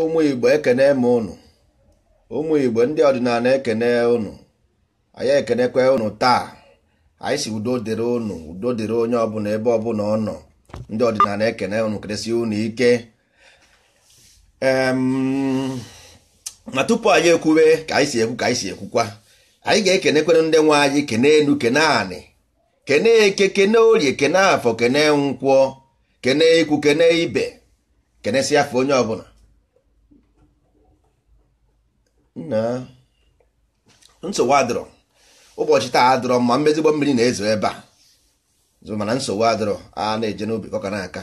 ụmụ igbo ekene ma ụnụ ụmụ igbo ndị ọdịnala ekene ụnụ anyị ekenekwe ụnụ taa anyị si udo dịrị ụnụ udo dịrị onye ọbụla ebe ọbụla ọ nọ ndị ọdịnala ekene ụnụ keresi ụnụ ike ma tupu anyị ekwube ka anyị ka anyị si ekwukwa anyị ga-ekenekwere ndị nwe kene enu kene kene eke kene orie kene afọ kene kene ikwu ibe afọ onye ọbụla na nsogbu adịrọ ụbọchị taa adịrọ ma mmezigbo mmiri na-ezo ebe a zụ mana nsogbu adịrọ a na-eje n'obi kọka na aka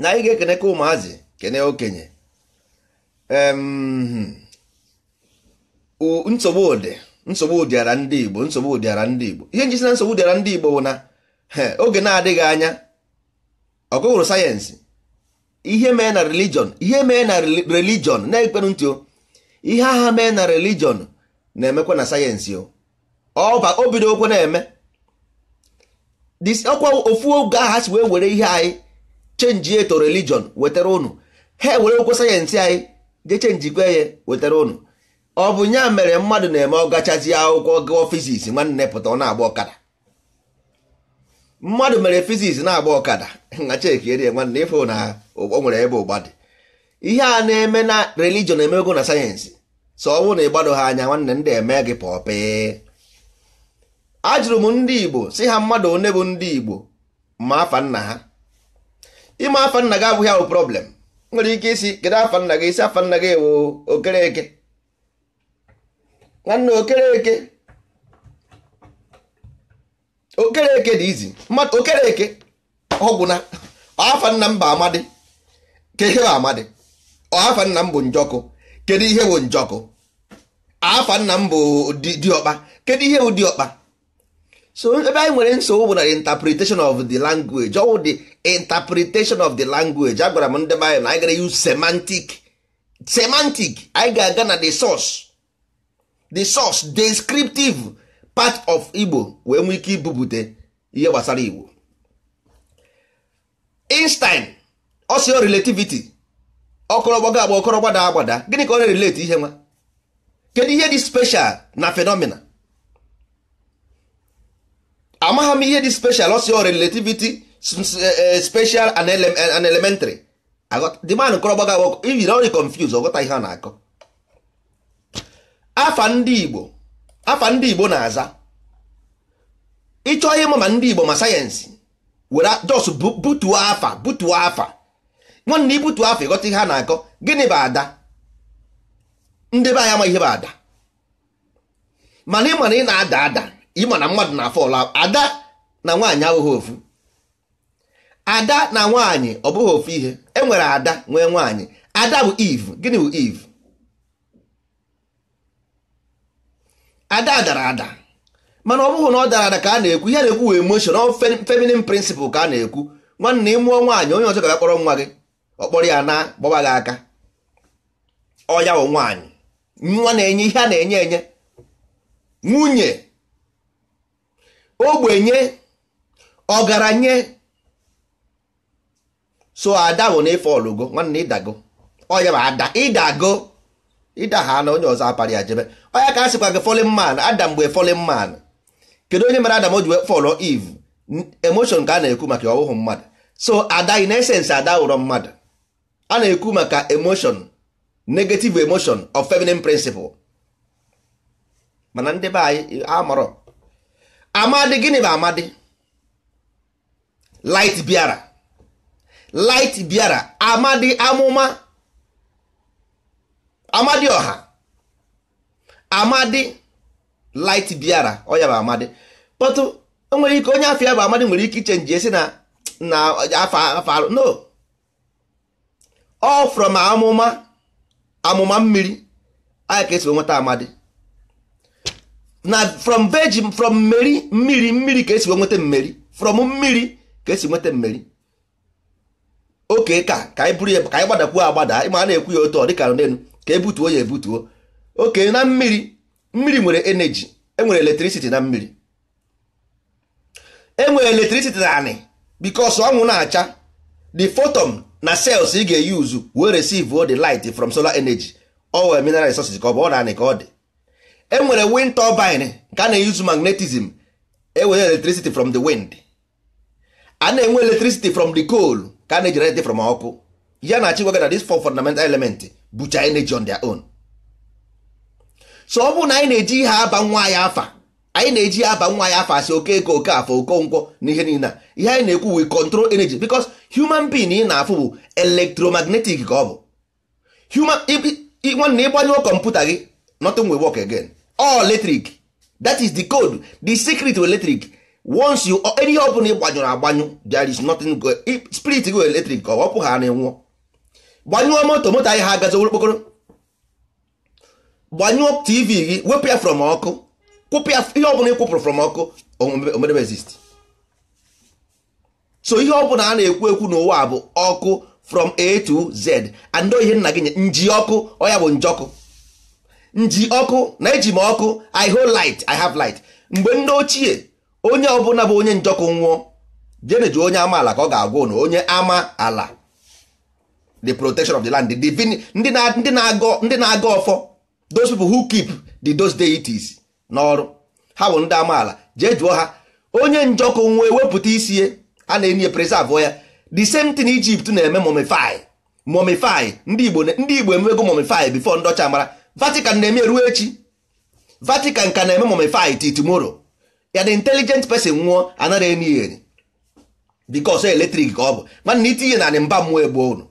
na anyị ga-ekene ka ụmụazị kene okenye nsogbu ụdị nsogbu ụdịara ndị Igbo nsogbu ụdịara ndị Igbo ihe njisi na nsogbu ụdịara ndị Igbo bụ na oge na-adịghị anya ọgụgụrụ sayensị ihe mee na religion ihe mee na religion na-ekperụ ntị ihe agha mee na religion na-emekwa na sayensị o bido okwe na-eme ọkwa ofu oge agha si wee were ihe anyị chenji eto religion wetara unu ha ewere okwe sayensị anyị jee chenjikwe ya wetara unu ọ bụ nya mere mmadụ na-eme ọgachazi akwụkwọ gụọ fiziks nwanne pụta ọ na-agba ọkada mmadụ mere fiziks na-agba ọkada na chekirie nwanne ife na o nwere ebe ụgba dị ihe a na-eme na religion emego na sayensị so ọnwụ na ịgbado ha anya nwanne ndị eme gị pọpị ajụrụ m ndị igbo si ha mmadụ one bụ ndị igbo ma afa nna ha ime afa nna gị abụghị ahụ problem nwere ike isi kedu afa nna gị isi afa nna gị ewu okereke nwanne okereke okereke dị izi mmadụ okereke ọgwụ na afa nna mba amadi kehe amadi afa nna mbụ bụ njọkụ kedu ihe bụ njọkụ afa nna m bụ diọkpa kedu ihe bụ diọkpa so ebe anyị nwere nsogbu bụ na interpretation of the language bụ the interpretation of the language agwara m ndị bayị na anyị gara use semantic semantic anyị ga-aga na the source the source descriptive part of Igbo wee nwee ike ibubute ihe gbasara Igbo Einstein ọsịọ relativity ọkọrọgbago agba ọkọrọgba agbada gịnị ka ọ na-erelate ihe nwa kedu ihe dị special na fenomena amagha m ihe dị special ọsịọ relativity e, e, special an e, elementary the man agba agba ijiri ọrị confuse ọghọta ihe a na-akọ afa ndị Igbo afa ndị Igbo na-aza ịchọ ihe ma ndị Igbo ma sayensị were jos butuo afa butuo afa nwanne ibutu afọ ịghọta ihe a na-akọ gịnị bụ ada ndị be anyị ama ihe bụ ada mana ị mana ị na-ada ada ịma na mmadụ na-afọ ọla ada na nwaanyị abụghị ofu ada na nwaanyị ọ bụghị ofu ihe e nwere ada nwee nwaanyị ada bụ iv gịnị bụ iv ada dara ada mana ọ bụghị na ọ dara ada ka a na-ekwu ihe na-ekwu emotion ọ feminin principle ka a na-ekwu nwanne ị mụọ nwaanyị onye ọzọ ga-akpọrọ nwa gị ọkpọrọ ya na gbọba gị aka ọya wụ nwaanyị nwa na-enye ihe a na-enye enye nwunye ogbenye ọgaranye so ada bụ na ọlụgo nwanne ịdago ọya bụ ada ịdago ịdagha na onye ọzọ apara ya jebe ọya ka a sịkwa gị fọlin man ada mgbe fọlin man kedu onye mere adam o ji fọlọ iv emoshon ka a na-ekwu maka ọwụhụ mmadụ so ada na-esensị ada wụrọ mmadụ a na-ekwu maka emotion negative emotion of feminine principle mana ndị be anyị amarọ amadị gịnị bụ amadị light biara light biara amadị amụma amadị ọha amadị light biara ọya bụ amadị kpọtụ o nwere ike onye afọ ya bụ amadị nwere ike ichenji esi na na afọ alụ no ọ from amụma amụma mmiri anyị ka esi nweta amadi na from virgin from mmeri mmiri mmiri ka esi nweta mmeri from mmiri ka esi nweta mmeri oke ka ka anyị buru ya ka anyị gbadakwuo agbada ịma a na-ekwu ya otu ọ dịka n'elu ka ebutuo ya ebutuo oke na mmiri mmiri nwere energy enwere electricity na mmiri enwere electricity na anị because ọnwụ na-acha the photon na cells ị ga-eyuzu wee receive the light from solar energy owe mineral resources ka ọ bụ ọ ka ọ dị e nwere wind turbine nke a na-eyuzu magnetism ewere electricity from the wind a na-enwe electricity from the coal ka a na-ejerete from ọkụ ya na achịgwaga na these four fundamental element bụcha energy on their own so ọ bụrụ na anyị na-eji ihe aba nwa anyị afa anyị na-eji aba nwa ya afọ asị oke ego oke afọ okonkwọ na ihe niile ihe anyị na-ekwu we control energy because human being ị na-afụ bụ electromagnetic ka ọ bụ human nwanne ịgbanyụọ kọmputa gị nothing will work again all electric that is the code the secret of electric once you ihe ọ bụla ịgbanyụrụ agbanyụ there is nothing go spirit go electric ka ọ pụ ha na nwụọ gbanyụọ moto moto anyị ha agazi okpokoro gbanyụọ tv gị wepụ ya from ọkụ kwụpịa ihe ọbụla ị kwụpụrụ from ọkụ omedebe exist so ihe ọbụla a na-ekwu ekwu n'ụwa bụ ọkụ from a to z and ihe nna gị nye nji ọkụ ọya bụ njọkụ nji ọkụ na eji m ọkụ i hold light i have light mgbe ndị ochie onye ọbụla bụ onye njọkụ nwụọ jeneju onye amaala ka ọ ga-agwụ na onye ama ala the protection of the land ndị na-agọ ọfọ those people who keep the those deities n'ọrụ ha bụ ndị amaala jee jụọ ha onye njọkụ nwa wepụta isi e? a na-enye preserve ya the same thing Egypt na-eme momify momify ndị Igbo ndị Igbo emewego momify before ndọcha mara Vatican na-eme ruo echi Vatican ka na-eme momify till tomorrow ya the intelligent person nwụọ anara enyi ya eletrik ka ọ bụ mana itinye na mba mmụọ egbuo unu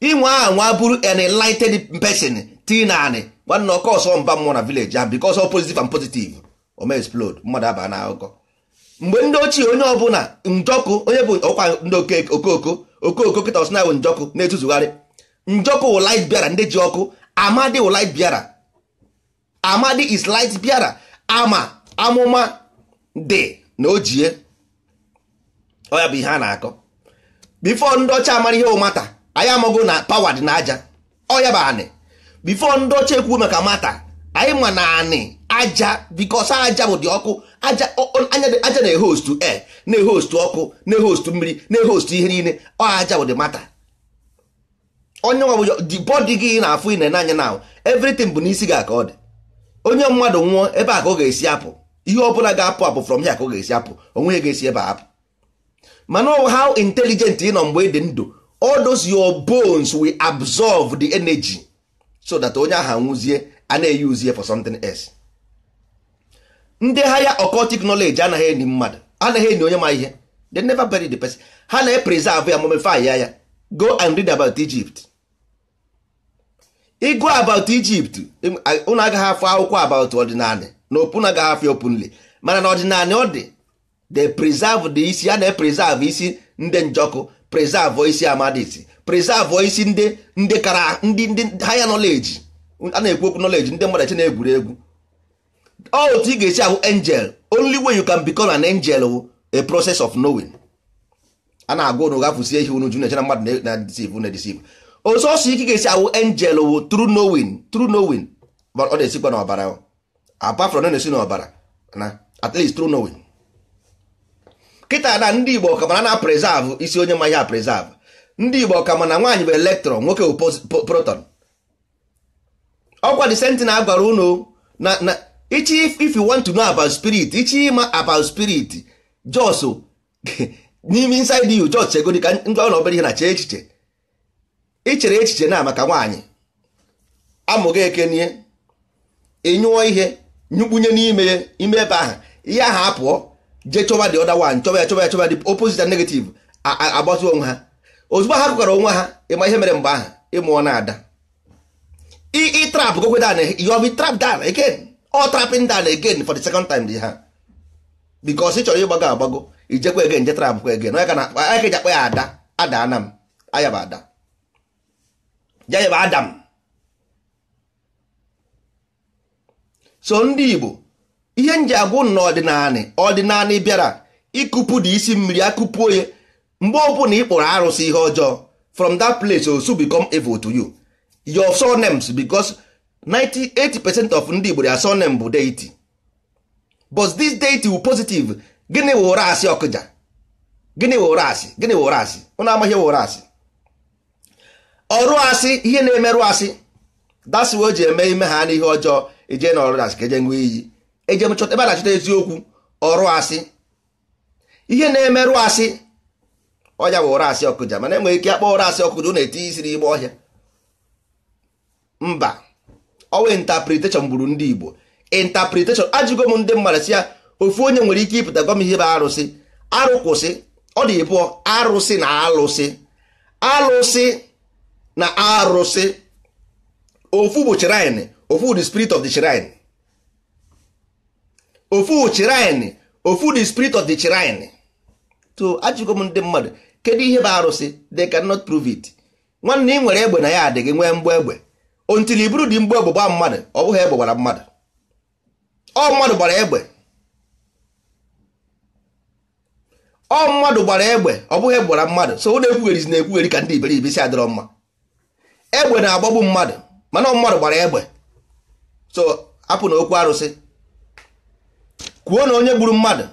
inwe aha nwa bụrụ an enlightened person tinanị nwanne ọkọ ọsọ mba mmụọ na vileji ahụ because ọsọ pozitiv and pozitiv ome explode mmadụ aba na akụkọ mgbe ndị ochie onye ọbụla njọkụ onye bụ ọkwa ndị okoko okoko kịta ọsịna bụ njọkụ na-etuzugharị njọkụ wụ light bịara ndị ji ọkụ amadi wụ bịara amadi is bịara ama amụma dị na ojie ọ bụ ihe a na-akọ bifo ndị ọcha amara ihe ụmata anyị amago na pawa dị na aja ọ ya bụ anị bifo ndị ọcha ekwu maka mata anyị ma na anị aja bikos aja bụ dị ọkụ aja na-ehostu e eh, na-ehostu ọkụ na-ehostu mmiri na-ehostu ihe niile ọ aja bụ dị mata onye ọ bụ the body gị na-afụ ine n'anya na evritin bụ n'isi ga aka ọ dị onye mmadụ nwụọ ebe a ka ọ ga-esi apụ ihe ọ bụla ga-apụ apụ from here ka ọ ga-esi apụ onwe ga-esi ebe apụ mana how intelligent ị nọ mgbe ị dị ndụ all those your bones will absorb the energy so that onye ahụ nwụzie a na-eyi uzie for something else ndị haya occultic knowledge anaghị enyi mmadụ anaghị enyi onye ma ihe they never bury the person ha na-epreserve ya mumify ya ya go and read about Egypt ịgụ about Egypt unu agaghị afọ akwụkwọ about ọdịnala na opu na agaghị afọ openly mana na ọdịnala ọ dị they preserve the isi a na-epreserve isi ndị njọkụ preserve isi amadisi preserve isi ndị ndị kara ndị ndị higher knowledge a na-ekwu okwu knowledge ndị mmadụ na-egwuri egwu otu ị ga-esi ahụ angel only way you can become an angel wu a process of knowing a na-agwa unu gafusie ihe unu ju na-echena mmadụ na deceive na deceive osọsọ ike ga-esi ahụ angel wu true knowing true knowing ọ na-esikwa n'ọbara apart from na-esi n'ọbara na at least true knowing kịta na ndị Igbo ka mara na preserve isi onye ma ya preserve ndị Igbo ka ma na nwaanyị bụ elektron nwoke bụ proton ọkwa disentin na gwara unu na na ichi if you want to know about spirit ichi ịma about spirit jos n'ime inside you jos chegodi ka ndị ọ obere ihe na chee echiche ichere echiche na maka nwaanyị amụghị ekenie ịnyụọ ihe nyụkpunye n'ime ya ime ebe ahụ ihe ahụ apụọ jee chọba the other one chọba ya chọba ya chọba dị opposite and negative onwe ha ozugbo ha gụgara onwe ha ịma ihe mere mgbe ahụ ịmụọ na-ada ịtrapụ gokwe dan you have been trapped down again all trapping down again for the second time di ha because ị chọrọ ịgbago agbago ijekwa egen je trapụ kwa egen ka na akpa ya ada ada ana m ayaba ada jayaba adam so ndị Igbo ihe nji agwụ na ọdịnanị ọdịnanị bịara ịkụpụ dị isi mmiri akụpuo ya mgbe ọbụla ị kpọrọ arụsị ihe ọjọọ from that place osu become evil to you your surnames because 98 percent of ndị Igbo their surname bụ deity but this deity wụ positive gịnị wụ ụra asị ọkụja gịnị wụ ụra asị gịnị wụ ụra asị ụnụ amaghị wụ ụra asị ọrụ asị ihe na-emerụ asị dasịwa o ji eme ime ha n'ihe ọjọọ eje na ọrụ asị ka eje nwee iyi eje ebe a na-achọta eziokwu ọrụ asị ihe na-emerụ asị ọnya bụ ụra asị ọkụja mana enweghị ike akpọ ụra asị ọkụja na etinye isi n'ime ọhịa mba ọwa intapretation gburu ndị Igbo intapretation ajụgo m ndị mmadụ si ya ofu onye nwere ike ịpụta gwa ihe bụ arụsị arụ kwụsị ọ dị ịbụọ arụsị na alụsị alụsị na arụsị ofu bụ shrine ofu the spirit of the shrine ofu shrine ofu the spirit of the shrine to ajụgo m ndị mmadụ kedu ihe bụ arụsị they cannot prove it nwanne ị nwere egbe na ya adịghị nwee mgbe egbe ontiri iburu dị mgbe egbe mmadụ ọ bụghị egbe gbara mmadụ ọ mmadụ gbara egbe ọ mmadụ gbara egbe ọ bụghị egbe gbara mmadụ so na-ekwugheri na-ekwugheri ka ndị iberibe si adịrọ mma egbe na-agbagbu mmadụ mana ọ mmadụ gbara egbe so apụ na okwu arụsị kwuo na onye gburu mmadụ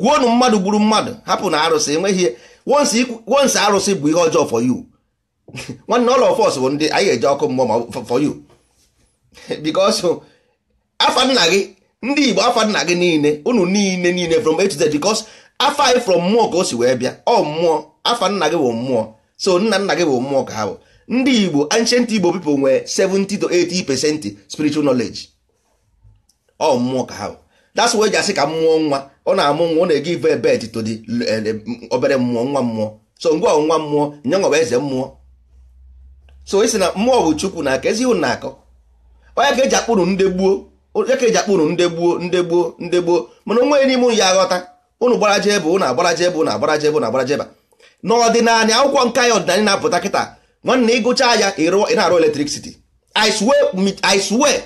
kwuo na mmadụ gburu mmadụ hapụ na arụsị enweghị once arụsị bụ ihe ọjọọ for you nwanne ọla of bụ ndị anyị eje ọkụ mmụọ for you because afa gị ndị Igbo afa gị niile unu niile niile from A to Z because afa anyị from mmụọ ka o si wee bịa ọ mmụọ afa gị bụ mmụọ so nna nna gị bụ mmụọ ka ha bụ ndị Igbo ancient Igbo people nwere 7 to 80 percent spiritual knowledge ọ mmụọ ka ha bụ that's why eji ka mmụọ nwa ọ na-amụ nwa ọ na-ege ive bet to eh, eh, obere mmụọ nwa mmụọ so ngwa nwa mmụọ nyanwa nwa eze mmụọ so isi na mmụọ bụ chukwu na aka ezi ụnụ na-akọ onye ka eji akpụrụ ndị gbuo onye ka eji akpụrụ ndị gbuo ndị gbuo ndị gbuo mana onwe n'ime ụnụ ya aghọta ụnụ gbaraje ebe ụnụ agbaraje ebe ụnụ agbaraje ebe ụnụ agbaraje ebe n'ọdịnala akwụkwọ nka ya ọdịnala na-apụta kịta nwanne ịgụcha ya ị na-arụ eletrik siti. swear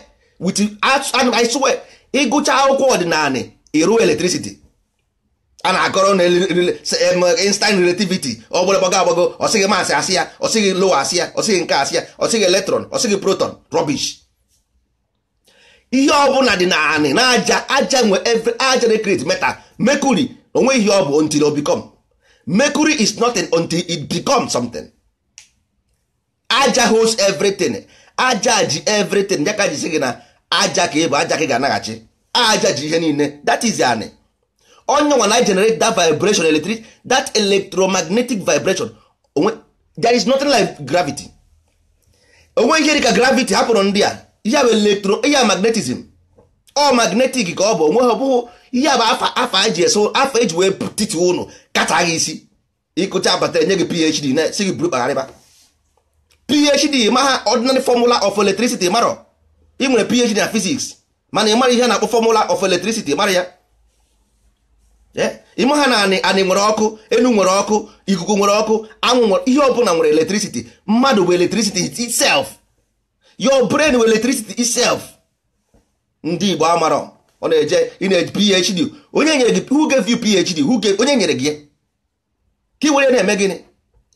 ịgụcha akwụkwọ ọdịnala iru eletricity a na-akọrọ na instant relativity ọ bụla gbago agbago ọsịghị maasị asị ya ọsịghị lowa asị ya ọsịghị nke asị ya ọsịghị electron ọsịghị proton rubbish ihe ọbụla dị naanị anị na aja aja nwe aja recreate metal mercury onwe ihe ọ bụ until o become mercury is nothing until it becomes something aja holds everything aja ji everything ya ji sị gị na aja ka ịbụ aja ka ị ga-anaghachi aja ji ihe niile that is anị onye nwa na generate that vibration electric that electromagnetic vibration onwe there is nothing like gravity onwe ihe dịka gravity hapụrụ ndị a ihe bụ electro ihe magnetism ọ magnetic ka ọ bụ onwe ha ọbụghị ihe bụ afa afa eji eso afa eji wee titi ụnụ kata gị isi ịkụcha abata enye gị phd na si gị buru kpagharịba phd ma ha ordinary formula of electricity marọ ị nwere phd na physics mana ị mara ihe na-akpọ formula of electricity mara ya eh? ịma ha na anị nwere ọkụ enu nwere ọkụ ikuku nwere ọkụ anwụ nwere ihe ọbụla nwere electricity mmadụ bụ electricity itself your brain bụ electricity itself ndị Igbo amarọ ọ na-eje ị na-eji phd onye nyere gị who gave you phd who gave onye nyere gị ya ka ị were na-eme gịnị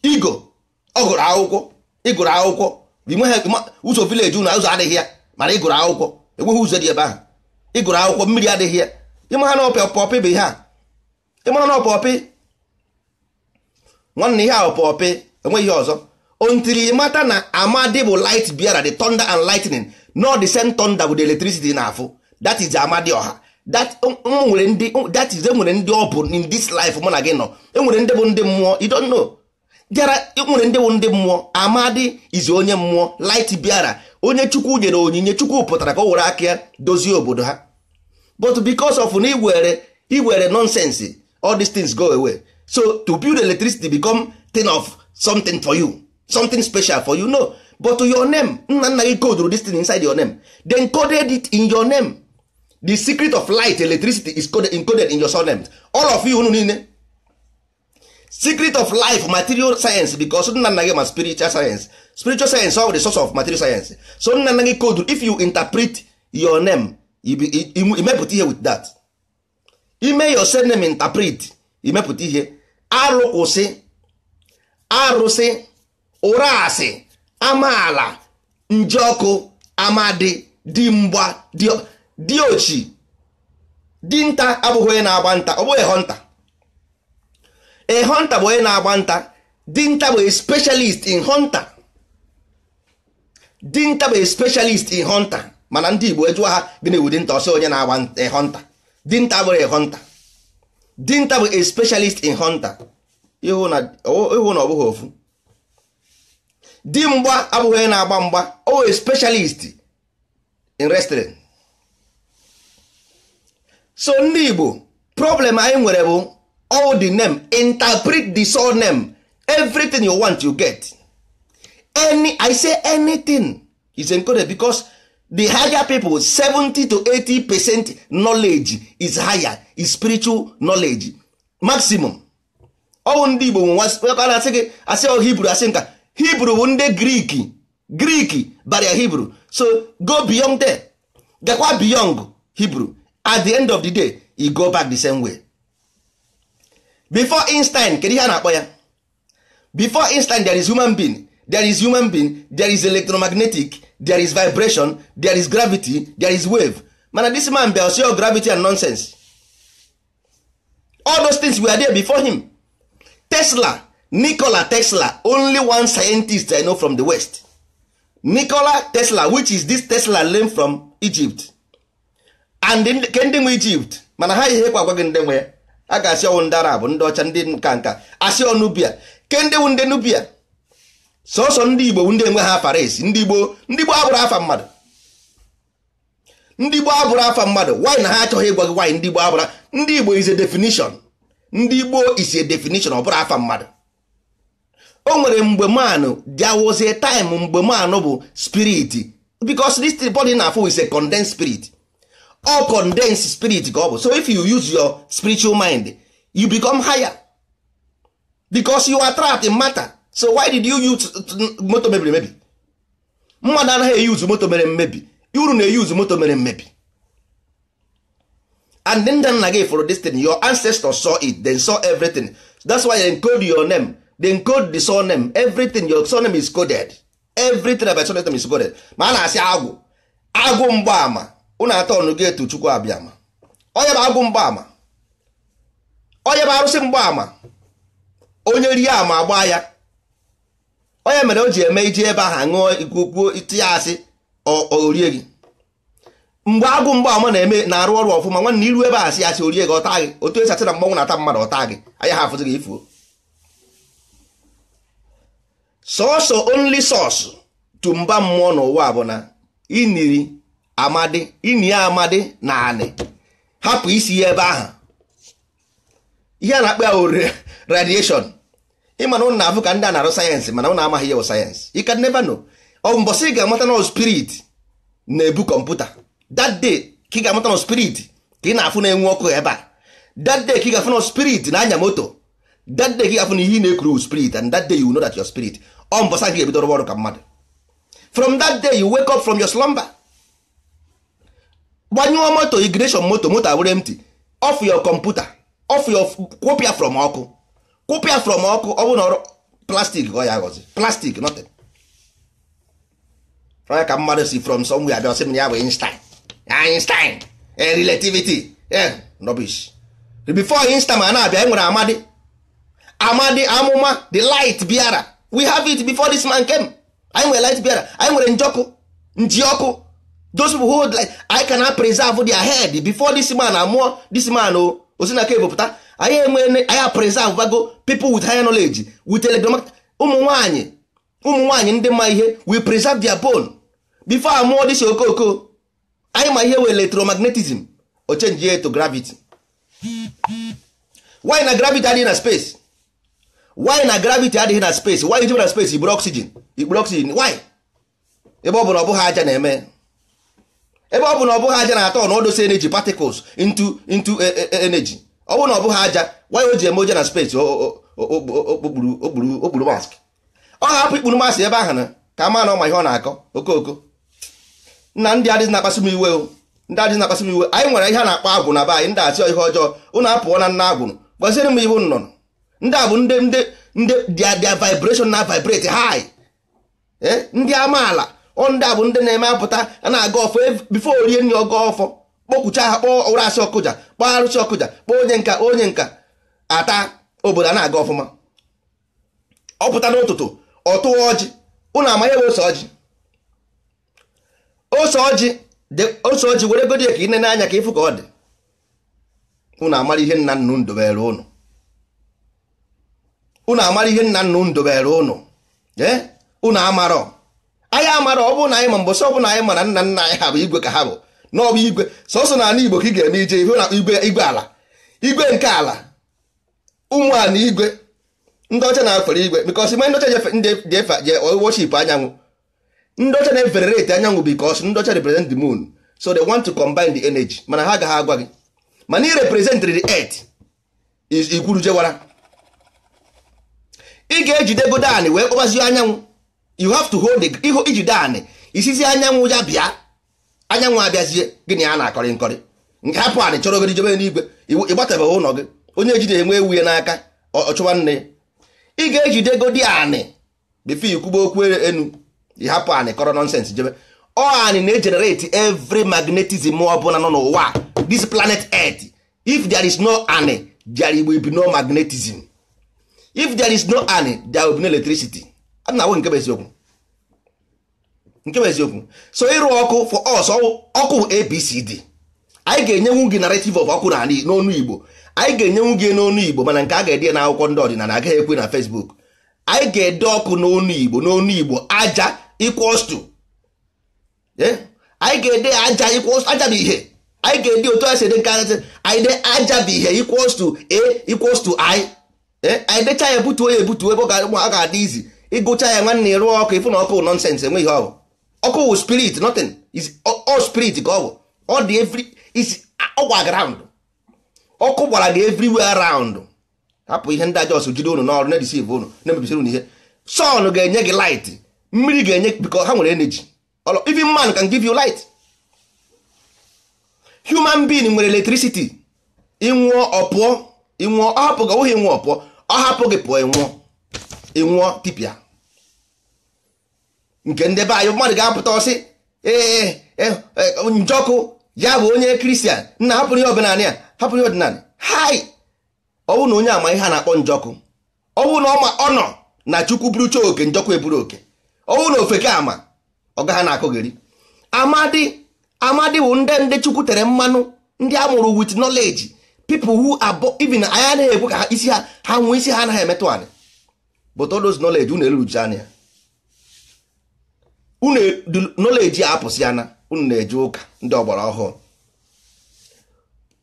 igo ọ gụrụ akwụkwọ ịgụrụ akwụkwọ ụzọ vileji ụnụ ụzọ adịghị ya mana ịgụrụ akwụkwọ enweghị ụzọ dị ebe ahụ ịgụrụ akwụkwọ mmiri adịghị ya ịmara na ọpọpị bụ ihe a ịmara na ọpọpị nwanne ihe a ọpọpị enweghị ọzọ ontiri mata na amadi bụ light biara the thunder and lightning not the same thunder with electricity na-afụ that is amadi ọha that nwere ndị that is enwere ndị ọ bụ in this life mụ na gị nọ enwere ndị bụ ndị mmụọ you don't know bịara e nwere ndị bụ ndị mmụọ amadi is onye mmụọ light biara onye chukwu nyere onyinye chukwu pụtara ka o were aka ya dozie obodo ha but because of na iwere iwere nonsense all these things go away so to build electricity become thing of something for you something special for you no but your name nna nna gị coduru this thing inside your name they encoded it in your name the secret of light electricity is coded, encoded in your surname all of you unu niile secret of life material science because nna nna gị ma spiritual science spiritual science ọ bụ the source of material science so nna nna gị kodu if you interpret your name imepụta ihe with that ime your surname interpret imepụta ihe arụ kwụsị arụsị ụra amaala njeọkụ amadi dimgba diochi dinta abụghị onye na-agba nta ọ bụghị ehonta ehonta bụ onye na-agba nta dinta bụ specialist in hunter dinta bụ specialist in hunter mana ndị Igbo etu ha bi na ewudi dinta ọsọ onye na-agba eh, hunter dinta bụrụ eh, hunter dinta bụ eh, specialist in hunter ịhụ na ọ bụghị ofu dimgba abụghị onye na-agba mgba o specialist in restaurant. so ndị Igbo problem anyị nwere bụ all the name interpret the sole name everything you want you get any i say anything is encoded because the higher people 70 to 80 percent knowledge is higher is spiritual knowledge maximum ọwụ ndị igbo na-asị gị asị ọ hibru asị nka hibru bụ ndị grik grik baria hibru so go beyond there gakwa beyond hibru at the end of the day you e go back the same way before einstein kedu ihe a na-akpọ ya before einstein there is human being there is human being there is electromagnetic there is vibration there is gravity there is wave mana this man bịa osi gravity and nonsense all those things were there before him Tesla Nikola Tesla only one scientist I know from the West Nikola Tesla which is this Tesla learned from Egypt and ke nwe Egypt mana ha ihe kwa agwaghị ndị nwe ya a ga-asị ọnwụ ndị Arab ndị ọcha ndị nka nka asị ọnụ bia ke ndị Nubia sọsọ ndị igbo bụ ndị enweghị afa esi ndị igbo ndị igbo abụrụ afa mmadụ ndị igbo abụrụ afa mmadụ wanyị na ha achọghị ịgwa gị ndị igbo abụrụ ndị igbo is a definition ndị igbo is a definition afa mmadụ o nwere mgbe manụ a time mgbe manụ bụ spirit because this body na full is a condensed spirit all condensed spirit ka ọ bụ so if you use your spiritual mind you become higher because you are trapped in matter so why did you use moto mebiri emebi mmadụ anaghị eyuzu moto mere mmebi uru na-eyuzu moto mere mmebi and ndị nna gị fụrụ destiny your ancestors saw it they saw everything that's why they encode your name they encode the name everything your saw name is coded everything about name is coded ma a na-asị agwụ agwụ mgbaama unu atọ ọnụ gị etu chukwu abịama onye bụ agwụ mgbaama onye bụ arụsị mgbaama onye rie ama agba ya onye mere o ji eme iji ebe ahụ ṅụọ igugbuo iti asị orie gị mgbe agụ mgbe ọma na-eme na-arụ ọrụ ọfụma nwanne iru ebe a sị asị orie gị ọta gị otu esi na mgbanwụ na-ata mmadụ ọta gị anya ha afụzi gị ifuo sọsọ onli source tu mba mmụọ n'ụwa bụ na iniri amadi ini ya amadi na anị hapụ isi ya ebe ahụ ihe a na-akpa ya radieshon. ị mana ụnụ na-afụ ka ndị a na-arụ sayensị mana ụnụ amaghị ya sayensị you can never know ọ ị ga-amata na spirit na-ebu kọmputa that day ka ị ga-amata na spirit ka ị na-afụ na-enwe ọkụ ebe a that day ka ị ga-afụ na spirit na-anya moto that day ka ị ga-afụ na ihe na-ekuru spirit and that day you know that your spirit ọ mbọsị gị ebido ọrụ ka mmadụ from that day you wake up from your slumber gbanyụọ moto igreshon moto moto abụrụ empty off your computer off your kwopịa from ọkụ kụpịa from ọkụ ọ bụrụ na plastik ọ ya agọzi plastik nothing onye ka mmadụ si from somewhere abịa ọsị m ya bụ Einstein Einstein e, relativity e, rubbish before Einstein ma na-abịa enwere amadi amadi amụma the light biara we have it before this man came anyị nwere light biara anyị nwere njọkụ ọkụ those who hold light I cannot preserve their head before this man amụọ this man o osi na ka ebopụta anyị enwe anya preserve bago people with high knowledge with telegram ụmụ nwanyị ụmụ nwanyị ndị ma ihe we preserve their bone before amụọ dịsi okooko anyị ma ihe we electromagnetism o change ya to gravity why na gravity adịghị na space why na gravity adịghị na space why iji na space iburu oxygen iburu oxygen why ebe ọ bụ na ọ bụghị aja na-eme ebe ọ bụ na ọ bụghị aja na-atọ na odosi energy particles into into e, e, e, energy ọ bụrụ na ọ bụghị aja waya o ji eme oje na space okpuru mask ọ hapụ ikpuru mask ebe ahụ na ka maa na ọ ihe ọ na-akọ okooko na ndị adịghị na-akpasị m iwe o ndị adịghị na-akpasị m iwe anyị nwere ihe a na-akpọ agwụ na be anyị ndị asị ihe ọjọọ ụnụ apụọ na nna agwụ gbaziri m iwu nnọnụ ndị a bụ ndị ndị ndị dia dia vibration na vibrate high eh? ndị amaala ọ ndị a bụ ndị na-eme apụta a na-aga ọfọ bifo orie nri ọgọ ọfọ kpọkpucha ha kpọọ ụra asị ọkụja kpọọ arụsị ọkụja kpọọ onye nka onye nka ata obodo a na-aga ọfụma ọ pụta n'ụtụtụ ọ tụwa ọjị ụnụ amanye bụ ose ọjị ose ọjị ose ọjị were godi ka ị nene anya ka ịfụ ka ọ dị ụnụ amara ihe nna nnu ndobere ụnụ ụnụ amara ihe nna nnu ndobere ụnụ ee ụnụ amarọ anyị amarọ ọ bụrụ na anyị ma mbọsị ọ na anyị mara nna nna anyị ha bụ igwe ka ha bụ n'ọbụ igwe sọsọ na ala igbo ka ị ga-eme ije ife na igwe igwe ala igwe nke ala ụmụala igwe ndị ọcha na-afere igwe bikọs mgbe ndị ọcha ji efe je worship anyanwụ ndị ọcha na-efere reti anyanwụ bikọs ndị ọcha represent the moon so they want to combine the energy mana ha agaghị agwa gị mana ị the earth ikwuru jewara ị ga-ejide godanị wee kpọbazie anyanwụ you have to hold iji anị isizi anyanwụ ya bịa anyanwụ abịazie gịnị a na-akọrị nkọrị nke hapụ anị chọrọ ogodi jebe n'igwe ịgbatebeghị ụlọ gị onye na enwe ewu ya n'aka ọchụwa nne ị ga-ejide godi anị bifo ikwugbo okwu enu ịhapụ anị kọrọ nọnsens jebe ọ anị na-ejenerate every magnetism ọ bụla nọ n'ụwa this planet earth if there is no anị there will be no magnetism if there is no anị there will no electricity a na-awụ nke bụ eziokwu nke bụ eziokwu so ịrụ ọkụ for us ọkụ abcd anyị ga-enyenwu gị narrative of ọkụ na n'ọnụ igbo anyị ga-enyenwu gị n'onu igbo mana nke a ga-ede na akwụkwọ ndị ọdịnala agaghị ekwe na facebook anyị ga-ede ọkụ n'onu igbo n'onu igbo aja equals eh? anyị ga-ede aja equals aja bụ ihe anyị ga-ede otu a si nke nkarịsị anyị de aja bụ ihe equals to a equals eh? anyị decha ya ebutuo ya ebutuo ebe ọ ga-adị izi ịgụcha ya nwanne ya ọkụ ịfụ na ọkụ nọnsensị enweghị ọ ọkụ wụ spirit nothing is all spirit ka ọ bụ ọ dị every is ọgwa ground ọkụ gbara gị everywhere around hapụ ihe ndị ajọs jide ụnụ n'ọrụ na-edisive ụnụ na-emebisiri unu ihe sun ga-enye gị light mmiri ga-enye biko ha nwere energy even man can give you light human being nwere electricity ịnwụọ ọpụọ ịnwụọ ọ hapụ gị ọ nwụghị ịnwụọ ọ hapụ gị pụọ ịnwụọ ịnwụọ tipịa nke ndị be anyị mmadụ ga-apụta ọsị ee e, e, e, njọkụ ya bụ onye kristian nna hapụrụ ihe ọdịnala ya hapụrụ ihe ọdịnala hai ọ bụ na onye ama ihe a na-akpọ njọkụ ọ bụ na ọ nọ na chukwu buru burucha oke njọkụ eburu oke ọ bụ na ofeke ama ọgaha na-akụgheri amadi amadi bụ ndị ndị chukwu tere mmanụ ndị a mụrụ nọleji knowledge people who are even anyị anaghị ekwe ka isi ha ha nwee isi ha anaghị emetụ anyị but all those knowledge unu eruruchi anya unu nọleji a apụsị ya na unu na-eje ụka ndị ọgbara ọhụụ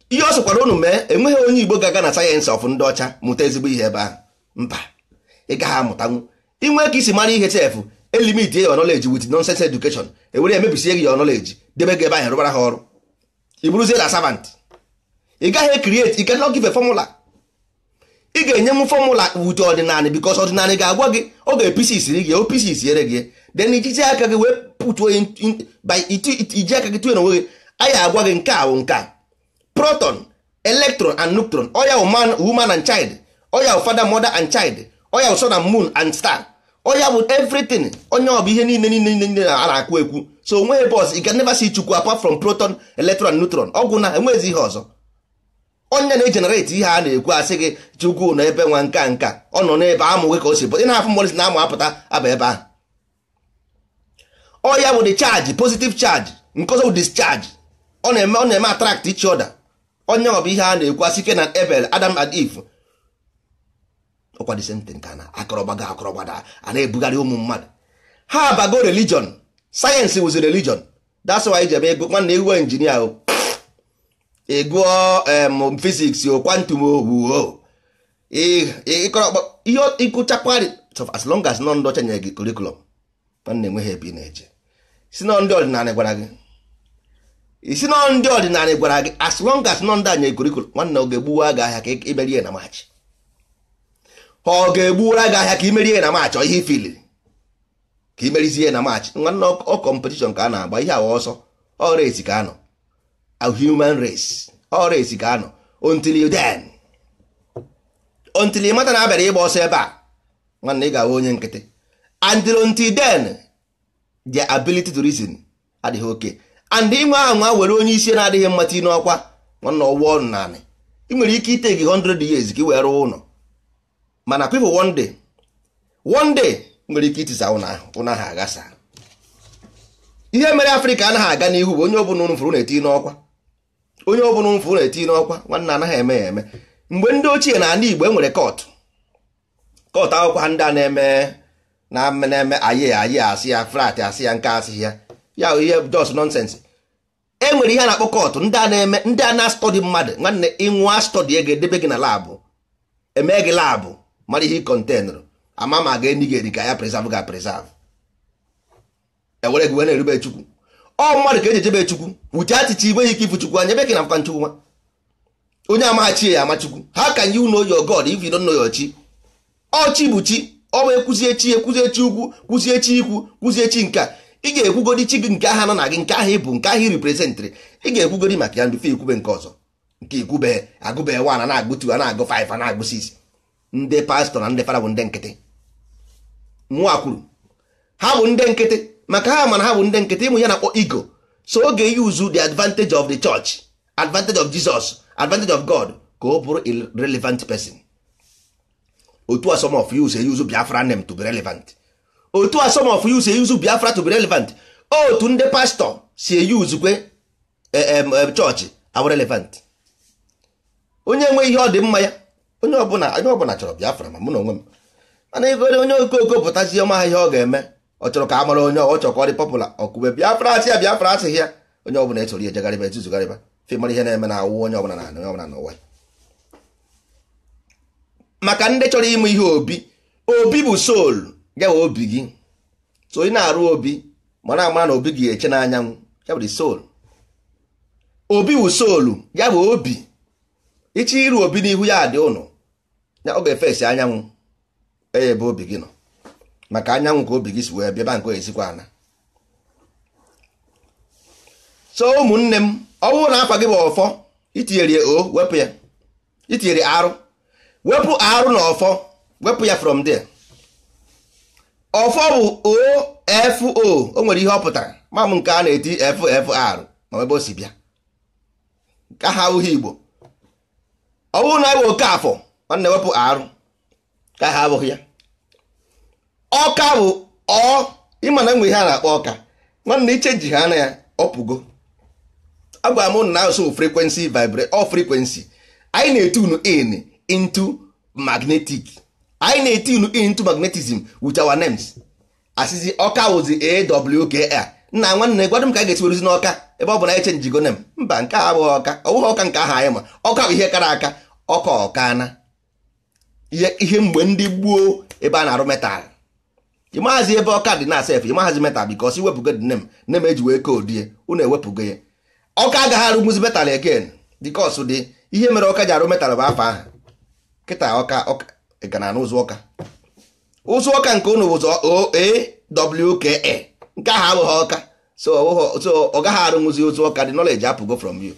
ihe ọ sịkwara unu mee enweghị onye igbo ga-aga na sayensị ọfụ ndị ọcha mụta ezigbo ihe ebe ahụ mba ị gaghị amụtanwu inwe ka isi mara ihe chefu elimit your knowledge with nonsense education ewere emebisie gị your nọleji debe gị ebe ahụ rụbara ha ọrụ ị na servant ị gaghị create ị cannot give ị ga-enye m fọmụla with ọdịnala because ọdịnala ga-agwa gị ọ ga siri isiri o opisi isiere gị then iji aka gị wee pụtuo iji aka gị tụnye n'onwe gị anyị agwa gị nke a nke a proton electron and neutron oya woman and child oya father mother and child oya sun and moon and star oya bụ everything onye ọ bụ ihe niile niile niile a na-akwu ekwu so onweghị bọs ị can never see chukwu apart from proton electron and neutron ọgwụ na enwezi ihe ọzọ onye na-ejenereti ihe a na-ekwu asị gị chukwu na ebe nwa nka nka ọ nọ n'ebe amụghị ka o si pụta ị na-afụ na amụ apụta aba ebe ahụ ọ ya bụ the charge positive charge nke ọzọ bụ discharge ọ na-eme ọ na-eme attract each ọda onye ọ bụ ihe a na-ekwu asị ike na Abel Adam and Eve ọkwa the na akọrọgba ga a na-ebugharị ụmụ mmadụ ha abago religion sayensị wuzi religion that's why ji eme ego nwanne iwe injinia o ịgụọ physics o quantum o ihe as long as nọ ndị ọcha nyere gị curriculum nwanne enweghị ebe ị na-eje si na ndị ọdịnala gwara gị isi nọ ndị ọdịnala gwara gị as long as nọ ndị anya ekorikoro nwanne ọ ga-egbuwa gị ahịa ka imerie na maachị ọ ga-egbuwara gị ahịa ka imerie na maachị ihe ifili ka imerizie na maachị nwanne ọ kọmpetishọn ka a na-agba ihe awa ọsọ ọ race ka anọ a human race ọ race ka anọ until den until ị mata na abịara ịgba ọsọ ebe a nwanne ị ga-ahụ onye nkịtị and until then the ability to reason adịghị oke and inwe ahụ nwa were onye isi na-adịghị mmata n'ọkwa nwanna ọnụ naanị ị nwere ike ite gị 100 years ka ị wee rụọ ụlọ mana people one day one day nwere ike itisa ụlọ ahụ aghasa ihe mere afrịka anaghị aga n'ihu bụ onye ọbụla ụnụ na-eti n'ọkwa onye ọbụla ụnụ na-eti n'ọkwa nwanna anaghị eme ya eme mgbe ndị ochie na ala igbo enwere kọtụ kọtụ akwụkwọ ndị a na-eme na na-eme ayị aye asị ya flat asị ya nke asị ya ya ihe just nonsense e nwere ihe a na-akpọ kọtụ ndị a na-eme ndị a na-astọdị mmadụ nwanne ịnwa stọdị ego edebe gị na laabụ eme gị laabụ mara ihe kọntenụrụ ama ma ga-enye gị eri ka ya preserve ga preserve ewere gị wee na-erube chukwu ọ mmadụ ka eji ejebe chukwu wuche achịcha igwe ike ifu chukwu anya ebe ka na mkpa nchukwu nwa onye amaghachi ya ama chukwu ha ka nye uno yo god if you don't know your chi ọchi bụ chi ọ wee kwụzie chi ekwụzie chi ukwu kwụzie chi ikwu kwụzie chi nke a ị ga-ekwugodi chi gị nke aha nọ na gị nke aha bụ nke aha iriprezentịrị ị ga-ekwugodi maka ya mfe ikwube nke ọzọ nke ikwube agụbe wan a na-agụ tu a na-agụ faif na-agụ sis ndị pastọ na ndị fada bụ ndị nkịtị mụa kwuru ha bụ ndị nkịtị maka ha mana ha bụ ndị nkịtị ịmụ ya na-akpọ igo so oge yuzu the advantage of the church advantage of Jesus advantage of God ka ọ bụrụ relevant person otu a some of you biafra name to be relevant otu a of you biafra to be relevant otu ndị pastọ si eyuzukwe eh, chọọchị awa relevant onye nwe ihe ọ dị mma ya onye ọbụla onye ọbụla chọrọ biafra ma mụ na onwe m mana ebe onye okoko pụtazi ọma ihe ọ ga-eme ọ chọrọ ka a mara onye ọ chọrọ ka ọ dị pọpụla ọkụbe biafra asị ya biafra asịghị ya onye ọbụla esoro ya ejegharịba etuzugharịba fe mara ihe na-eme na awụ onye ọbụla na onye ọbụla ya maka ndị chọrọ ịmụ ihe obi obi bụ soul ya obi gị so ị na-arụ obi mara amara na obi gị eche n'anyanwụ ya soul obi bụ soul ya bụ obi iche iru obi n'ihu ya dị ụnụ ya ọ ga-efesi anyanwụ e ebe obi gị nọ maka anyanwụ ka obi gị si wee bịa ebe nke ezikwa ana so ụmụnne m ọ bụrụ na afa gị bụ ọfọ itinyere o wepụ ya itinyere arụ wepụ arụ na ọfọ wepụ ya from there ọfọ bụ ofo o nwere ihe ọ pụtara ma nke a na-eti ffr ma ebe o si bịa ka ha ahụghị igbo ọ bụrụ na ewee oke afọ na-ewepụ arụ ka ha abụghị ya ọka bụ ọ ịma na nwe ihe a na-akpọ ọka nwanne iche ji ha na ya ọpụgo agwa m na asụ frekwensi vibre ọ frekwensi anyị na-eti unu ịnị. into magnetic anyị na-etinu into magnetism with our names ọka wụzi awka nna nwanne gwadụ m ka a ga-esiwerụzi n'ọka ebe ọ bụ na echenjigo nem mba nke a abụghị ọka ọ ọka nke aha anyị ma ọka bụ ihe kara aka ọka ọkana ihe mgbe ndị gbuo ebe a na-arụ metal ịmaghazi ebe ọka dị na sef ịmaghazi metal bikos iwepụgo dị nem nem eji wee koodie unu ewepụgo ya ọka agaghị arụmuzi metal again dịkọs dị ihe mere ọka ji arụ metal bụ afọ ahụ kịta ọka ịgana n'ụzọ ụka ụzọ ụka nke ụnụ bụ OAWKA nke ahụ abụghị ọka so ọ gaghị arụnwụzi ụzọ ụka dị nọleji apụgo from you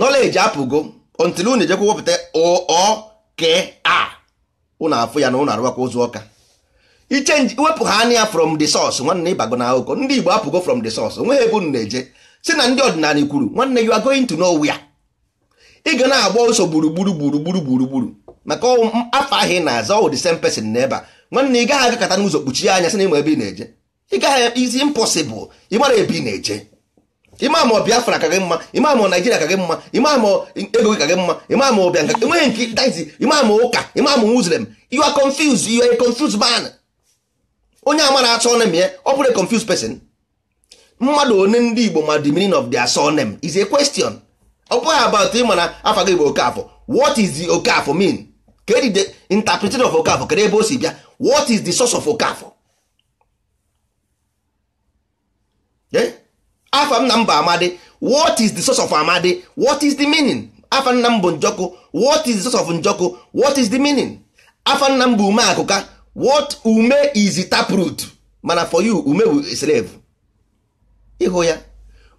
nọleji apụgo until unu ejekwa wepụta OOKA ụnụ afụ ya na unu arụwakwa ụzọ ụka ichenji wepụ ha anya from the source nwanne ịbago na akụkọ ndị Igbo apụgo from the source onweghị ebe unu na-eje si na ndị ọdịnala kwuru nwanne you are going to ya. ị ga na-agba ụsọ gburugburu gburugburu gburugburu maka afọ ahịa ị na-aza ọwụ the same person n'ebe a nwanne ị gaghị agakọta n'ụzọ kpuchie anya sị na ịma ebe ị na-eje ị gaghị izi mpọsịbụl ịmara ebe ị na-eje ịma ma Biafra ka gị mma ịma ma Naijiria ka gị mma ịma ma ego gị ka gị mma ịma ma ọbịa nka enweghị nke daizi ịma ma ụka ịma ma Muslim you are confused you are a confused man onye amara atụ ọnem ya ọ bụrụ a confused person mmadụ one ndị Igbo ma the meaning of their surname is a question ọ bụghị about ị afọ afa gị bụ Okafọ what is the Okafọ mean kedu the interpretation of Okafọ kedu ebe o si bịa what is the source of Okafọ eh? afa nna m bụ Amadi what is the source of Amadi what is the meaning Afọ nna m bụ Njọkụ what is the source of Njọkụ what is the meaning Afọ nna m bụ Ume Akụka what ume is the taproot mana for you ume bụ slave ịhụ ya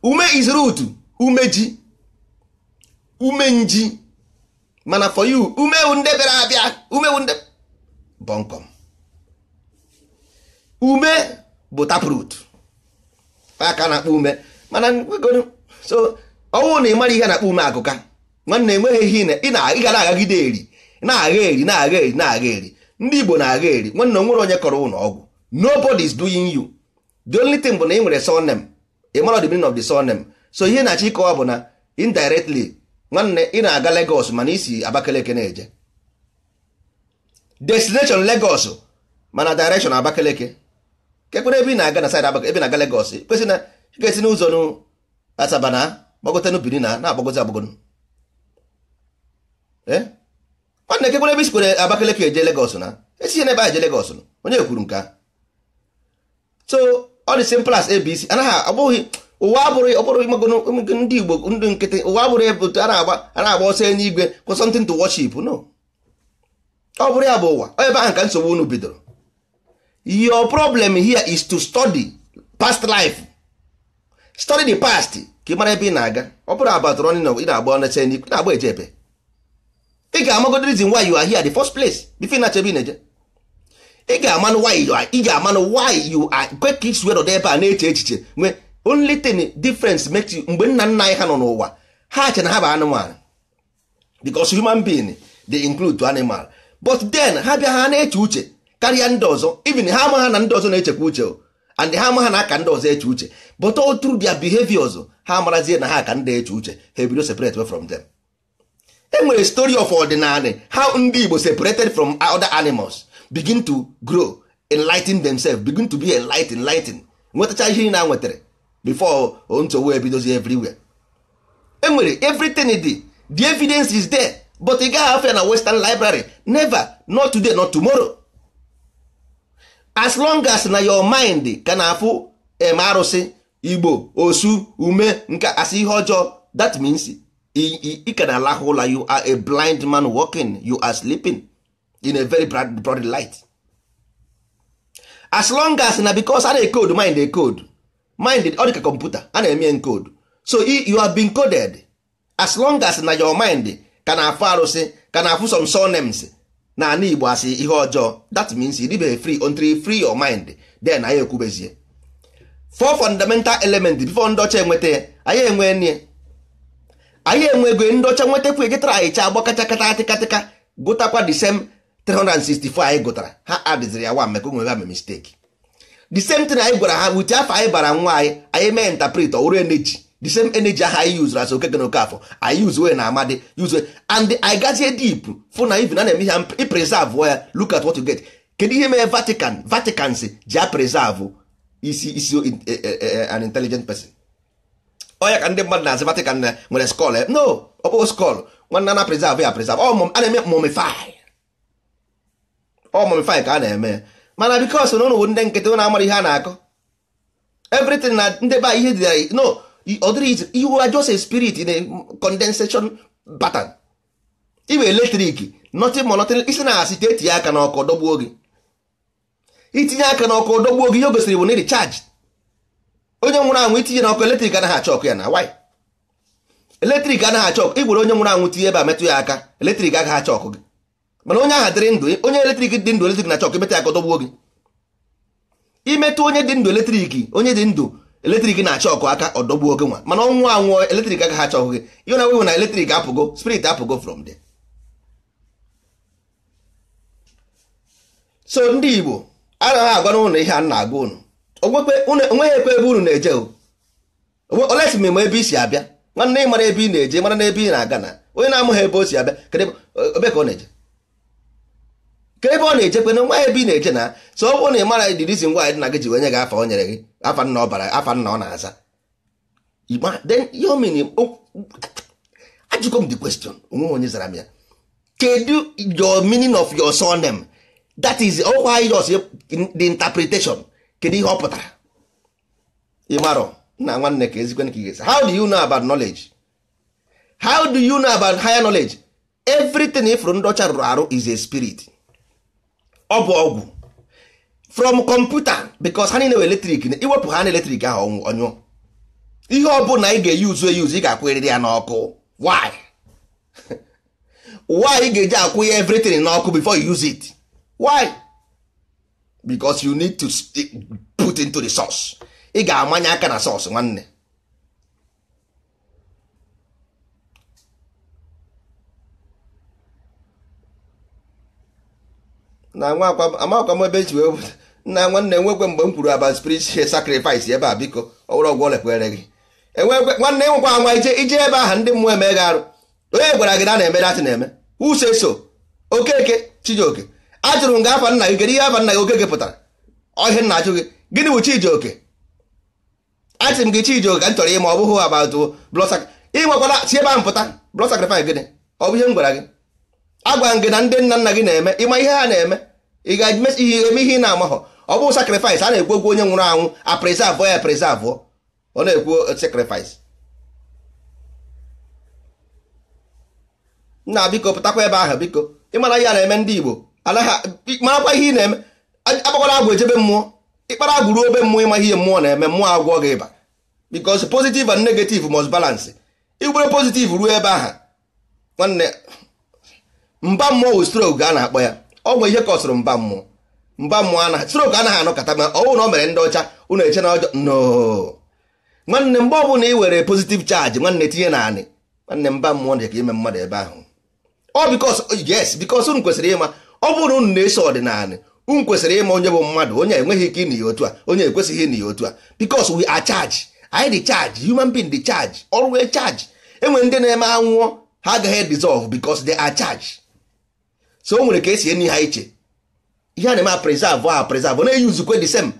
ume is root umeji. umenji mana for you umewu nde bịara abịa umewu nde bọnkọm ume bụ taprut aka na-akpọ ume mana so ọnwụ na ị mara ihe na-akpọ ume agụka nwanne enweghị ihe ị ga na-agagide eri na-agha eri na-agha eri na-agha eri ndị Igbo na-agha eri nwanne onwere onye kọrọ ụlọ ọgwụ nobody is doing you the only thing bụ na ị nwere surname ị mara the meaning of the surname so ihe na-achọ ịkọwa bụ na indirectly nwanne ị na-aga Lagos mana isi Abakeleke na-eje destination Lagos mana direction Abakeleke kekwere ebe ị na-aga na side Abakaliki ebe na-aga Legos kwesị na ga-esi n'ụzọ nụ Asaba na gbagotenu Benin na na-agbagozi agbagonu eh? nwanne kekwere ebe isikwere Abakeleke eje Legos na esi n'ebe a eje Legos onye kwuru nke a so ọ dị simple as ABC anaghị ọ bụghị ụwa abụrụ ọbụrụ ndị igbo ndị nkịtị ụwa abụrụ ebe a na-agba ọsọ enye igwe for something to worship no ọ bụrụ ya bụ ụwa ebe ahụ ka nsogbu unu bidoro your problem here is to study past life study the past ka ị mara ebe ị na-aga ọ bụrụ abatụrụ ọnị ị na-agba ọnacha enye igwe na-agba eje ebe ị ga-amago the reason why you are here the first place before na-achọ ebe ị na-eje ị ga-amanụ why you are ị ga-amanụ why you are kwe ka ị si were ebe a na-eche echiche nwee only thing difference makes mgbe nna nna anyị ha nọ n'ụwa ha che na ha bụ anụmanụ because human being dey include animal but then ha bịa ha na-eche uche karịa ndị ọzọ even ha ama ha na ndị ọzọ na-echekwa uche and ha ama ha na aka ndị ọzọ eche uche but all through their behaviors ha marazie na ha ka ndị eche uche ha ebido separate from them e nwere story of ordinary how ndị Igbo separated from other animals begin to grow ten themselves begin to be enlightened ten nwetacha ihe na nwetara before ntụwa ebidozi everywhere enwere everything e dị the evidence is there but ị gaghị afọ na western library never not today not tomorrow as long as na your mind ka na-afụ em arụsị igbo osu ume nke asị ihe ọjọọ that means ị ka na-alahụ ụla you are a blind man working you are sleeping in a very broad light as long as na because a na-ekod mind ekod mind ọ ka kọmputa a na-eme encode so you have been coded as long as na your mind ka na-afụ arụsị ka na-afụ some names na ana igbo asị ihe ọjọọ that means you live free until free your mind then anyị ekwubezie four fundamental element before ndị enweta anyị enwe nne anyị enwego ndị ọcha nwetakwa gịtara anyị cha kata atịkatịka gụtakwa the same 364 anyị gụtara ha adịziri ya wa maka onwe ha mee mistake the same thing anyị gwara ha wute afọ anyị bara nwa anyị anyị mee interpret ọwụrụ energy the same energy ahụ anyị yuzuru as okeke na okafọ anyị yuzue na amadi yuzue and I gazie deep fụ na even a na-eme ihe ipreserve ya look at what you get kedu ihe mere Vatican Vaticans si ji a preserve isi isi eh, eh, eh, an intelligent person ọ ya ka ndị mmadụ na-asị Vatican na nwere skull no ọkpụkpọ skull nwanne na preserve ya preserve ọ a na-eme mumify ọ mumify ka a na-eme mana bikos na ụnụ bụ ndị nkịtị ụnụ amara ihe a na-akọ everything na ndị ba ihe dị no ọ dịrị ihe wa just a spirit in a condensation pattern iwe eletrik nothing more nothing isi na-asị etinye aka n'ọkụ dọgbuo gị itinye aka n'ọkụ dọgbuo gị ihe o gosiri bụ na recharge onye nwụrụ anwụ itinye n'ọkụ eletrik anaghị achọ ọkụ ya na why eletrik anaghị achọ ọkụ igwere onye nwụrụ anwụ tinye ebe a metụ ya aka eletrik agaghị achọ ọkụ gị mana onye aha dịrị ndụ onye eletrik dị ndụ eletrik na chọk emeta ya ka dọgbuo gị imetụ onye dị ndụ eletrik onye dị ndụ eletrik na chọkụ aka ọdọgbuo gị nwa mana ọnwụ anwụọ eletrik aka ha chọghị gị ihe na wewe na eletrik apụgo spirit apụgo from there so ndị igbo anaghị agwa n'ụlọ ihe a na-agwa ụnụ onweghị ekwe ebe unu na-eje olesi m ma ebe i si abịa nwanne ị mara ebe ị na-eje mara na ebe ị na-aga na onye na-amụghị ebe o si abịa kedụ ebe ka ọ na-eje ka ebe ọ na-echekwa na nwa ebe ị na-eche na so ọ bụrụ na ị mara dirizi ngwa dị na gị ji wenye gị afa o nyere gị afa nna ọ bara afa nna ọ na-aza ajụgo m the question onwe onye zara m ya kedu your meaning of your surname that is ọkwa jos the interpretation kedu ihe ọ pụtara ịmarọ na nwanne ka ezikwe ka ị how do you know about knowledge how do you know about higher knowledge everything ifụrụ ndị ọcha rụrụ arụ is a spirit ọ bụ ọgwụ from kọmputa because ha niile eletrik na iwepụ ha na eletrik ahụ ọnyụ. ihe ọ bụla ị ga-eyuzu eyuzu ị ga-akwụnyerịrị ya n'ọkụ why why ị ga-eji akwụ ya everything n'ọkụ before you use it why because you need to put into the source ị ga-amanye aka na source nwanne na nwa amakwa m ebe eji wee nna nwanne nwekwe mgbe m kwuru aba ihe sacrifice ebe a biko ọwụrụ ọgwụ olekwere gị enwekwe nwanne nwekwa anwa ije ije ebe aha ndị mmụọ emeghe arụ onye gwara gị na na-eme datị na-eme use so okeke chijioke ajụrụ m gị afa nna gị kedu ihe afa nna gị oke gị pụtara ọhịa nna ajụ gị gịnị bụ chijioke achị m gị chijioke ka m chọrọ ịma ọ bụghị abatụ blọsak ịnwekwara si ebe ahụ pụta blọd sacrifice gịnị ọ bụ ihe m gwara gị agwa gị na ndị nna nna gị na-eme ịma ihe ha na-eme ị ga-eme ihe ị na-amaghọ ọ bụ sacrifice a na-ekwu okwu onye nwụrụ anwụ a preserve ya preserve ọ na-ekwu sacrifice nna biko pụtakwa ebe ahụ biko ịmara ihe a na-eme ndị Igbo marakwa ihe ị na-eme agbakwala agwụ ejebe mmụọ ịkpara agwụ ruo obe mmụọ ịma ihe mmụọ na-eme mmụọ agwọ gị ịba because positive and negative must balance igbere positive ruo ebe ahụ nwanne mba mmụọ wụ stroke a na-akpọ ya ọ nwee ihe kọsụrụ mba mmụọ mba mmụọ a na ọ anaghị anọkọta ma na ọ mere ndị ọcha ụnụ eche na ọjọọ no nwanne mgbe ọbụla ị were pozitiv chaji nwanne tinye na anị nwanne mba mmụọ na ka ime mmadụ ebe ahụ ọ bikos yes unu kwesịrị ịma ọ bụrụ na unu na-eso ọdịnala unu kwesịrị ịma onye bụ mmadụ onye enweghị ike ịnị ya otu a onye ekwesịghị ịnị ya otu a bikos we are charge anyị dị charge human being dị charge ọrụ wee charge enwere ndị na-eme anwụọ ha agaghị dissolve bikos they are so o nwere ka esi enyi ha iche ihe a na-eme preserve a preserve na-eyi nzukwe the same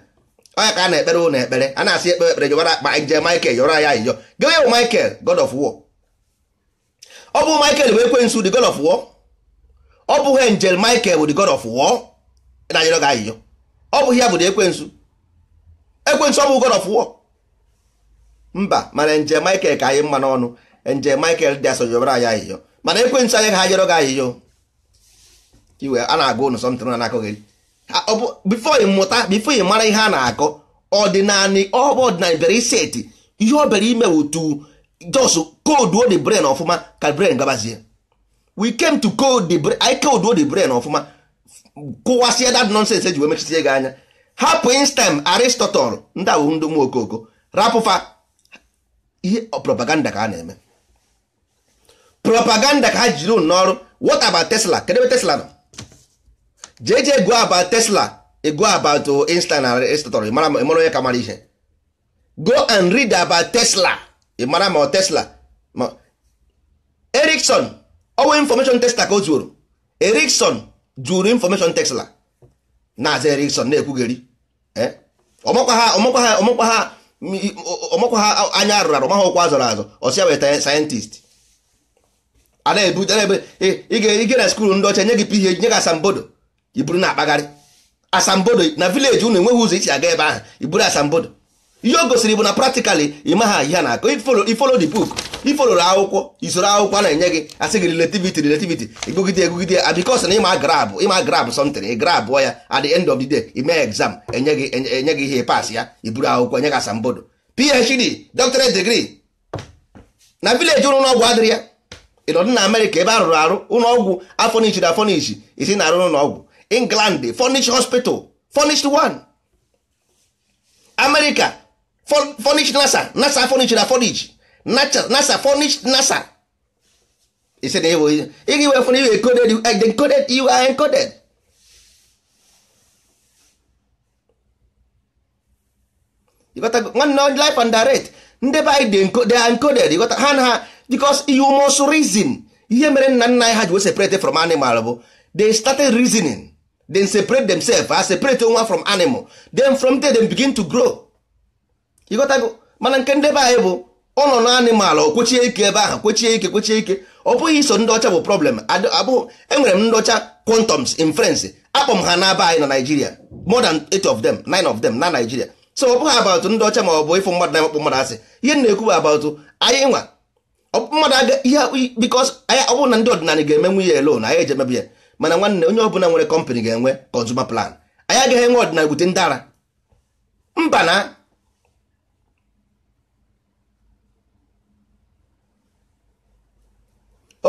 onye ka a na-ekpere ụlọ ekpere a na-asị ekpere ekpere jọbara akpa nje Michael yọrọ ya ịyọ gawe bụ Michael God of War ọ bụ Michael bụ ekwensu the God of War ọ bụghị Angel Michael bụ the God of War na yọrọ gị ayịyọ ọ bụghị ya bụ the ekwensu ekwensu ọ bụ God of War mba mana Angel Michael ka anyị mma n'ọnụ Angel Michael dị asọ jọbara ya ayịyọ mana ekwensu anyị ka ha yọrọ gị ayịyọ iwe a na-agụ ụnụ sọmtịrị na na-akọ gị bifo ịmụta mụta bifo ị mara ihe a na-akọ ọdịnanị ọbụ ọdịnanị bịara iseti ihe ọ bịara ime wutu jos koduo the brain ọfụma ka brain gabazie we came to code the brain anyị the brain ọfụma kụwasịa that nonsense eji wee mechisie gị anya hapụ instem aristotle ndị a bụ ndị okoko rapụfa ihe propaganda ka a na-eme propaganda ka ha jiri n'ọrụ what about tesla kedụ ebe tesla nọ jeje jee go tesla tesla go about insta na instator mara onye ka mara ihe go and read aba tesla ị mara ọ tesla ma erikson ọnwe information tesla ka o zuoro erikson jụrụ information tesla na-aza erikson na-ekwugheri eh? ọmakwa ha anya arụrụ arụ maha ụkwụ azọrọ azọ ọsịa weta sayentist a na-ebu e, ị ga-ere skuul ndị ọcha nye gị pihe nye gị asambodo iburu na-akpagharị asambodo na vileji unu enweghị ụzọ isi aga ebe ahụ iburu asambodo ihe o gosiri bụ na practically ịma ha ihe na-akọ ifolo the book ifoloro akwụkwọ isoro akwụkwọ na-enye gị asị gị relativity relativity egogide egogide a because na ịma grab ịma grab something grab ya at the end of the day ime exam enye gị enye gị ihe pas ya iburu akwụkwọ enye gị asambodo phd doctorate degree na vileji ụlọ ọgwụ adịrị ya ịnọdụ na amerịka ebe rụrụ arụ ụlọọgwụ afọnichi na isi na-arụ n'ụlọọgwụ england furnished hospital furnished one america furnished nasa nasa furnished na furnish nasa furnished nasa he said ị ga-ewe fun you encoded you are encoded you are encoded nwanne life and direct ndị be they are encoded ịghọta ha na ha because you must reason ihe mere nna nna anyị ha ji separate from animal bụ they started reasoning then separate themselves as separate nwa from animal then from there they begin to grow ịghọtago mana nke ndị be anyị bụ ụlọ na animal ọ kwechie ike ebe ahụ kwechie ike kwechie ike ọ bụghị iso ndị ọcha bụ problem abụghị enwere m ndị ọcha quantums in France akpọ m ha n'aba anyị na Nigeria more than eight of them nine of them na Nigeria so ọ bụghị about ndị ọcha ma ọ bụ ịfụ mmadụ na ịkpọ mmadụ asị ihe na-ekwu bụ about anyị nwa mmadụ aga ihe bikos ọ bụrụ na ndị ọdịnala ga-emenwu ya elo na anyị eji emebi ya mana nwanne onye ọbụla nwere kọmpanị ga-enwe consumer plan anyị agaghị enwe ọdịnala bute ndị ara mba na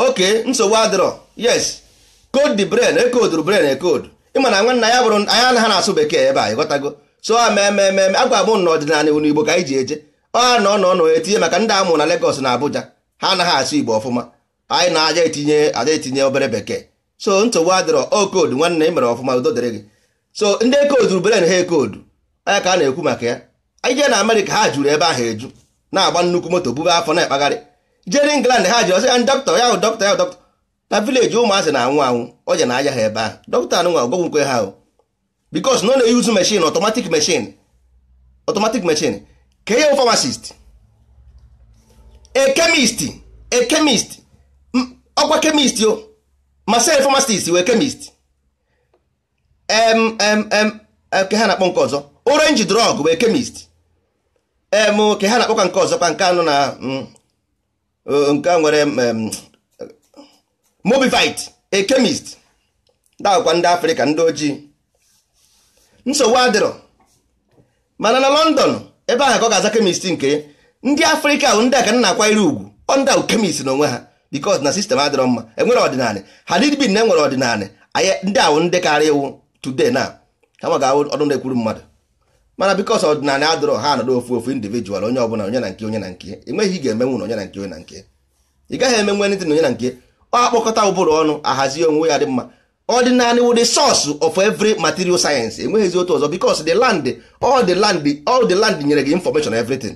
oke nsogbu adịrọ yes code the brain ekooduru brain ekodu ịma na nwanne ya bụrụ anya na ha na-asụ bekee ebe a ịghọtago so a mee mee agwa m na ọdịnala unu igbo ka anyị ji eje ọ na ọ nọ etinye maka ndị amụ na Lagos na Abuja ha anaghị asụ igbo ọfụma anyị na-aja etinye aja etinye obere bekee so nsogbu adịrọ o oh, koodu nwanne ị mere ọfụma udo dịrị gị so ndị ekooduru beren ha ekoodu anya ka a na-ekwu maka ya anyị na amerịka ha juru ebe ahụ eju na-agba nnukwu moto bube afọ na-ekpagharị jere ngland ha jiri ọsị ah, ya dọkịta ya dọkịta ya dọkịta na vileji ụmụazị na-anwụ anwụ oje na aja ha ebe ahụ dọkịta anụnwa ọgwụgwụ nke ha bikos na ọ na-eyuzu meshin ọtọmatik mechin ọtọmatik meshin ka ihe famasist ekemist ekemist ọkwa kemist o masịrị pharmacist wee kemist em em em ke ha na-akpọ nke ọzọ orange drug wee chemist em ke ha na-akpọ nke ọzọ kwa nke anụ na mm, eh, nke nwere mm, mobivit a chemist dakwa ndị afrịka ndị ojii nsogbu adịrọ mana na london ebe aha ka ọ ga-aza kemist nke ndị afrịka ahụ ndị aka ka na-akwanyere ugwu ọ ndị ahụ kemist n'onwe ha because na sistem adịrọ mma enwere ọdịnala hadid bin na enwere ọdịnala ndị awụ ndị karịa iwu today na ha ma ga-awụ ọdụ na-ekwuru mmadụ mana because ọdịnala adịrọ ha nọdụ ofu ofu individual onye ọbụla onye na nke onye na nke enweghị ga-emenwu na onye na nke onye na nke ị gaghị eme anything na onye na nke ọ akpọkọta ụbụrụ ọnụ ahazi onwe ya dị mma ọdịnala wụ the source of every material sayensị enweghịzi otu ọzọ bikos the land all the land all the land nyere gị information everything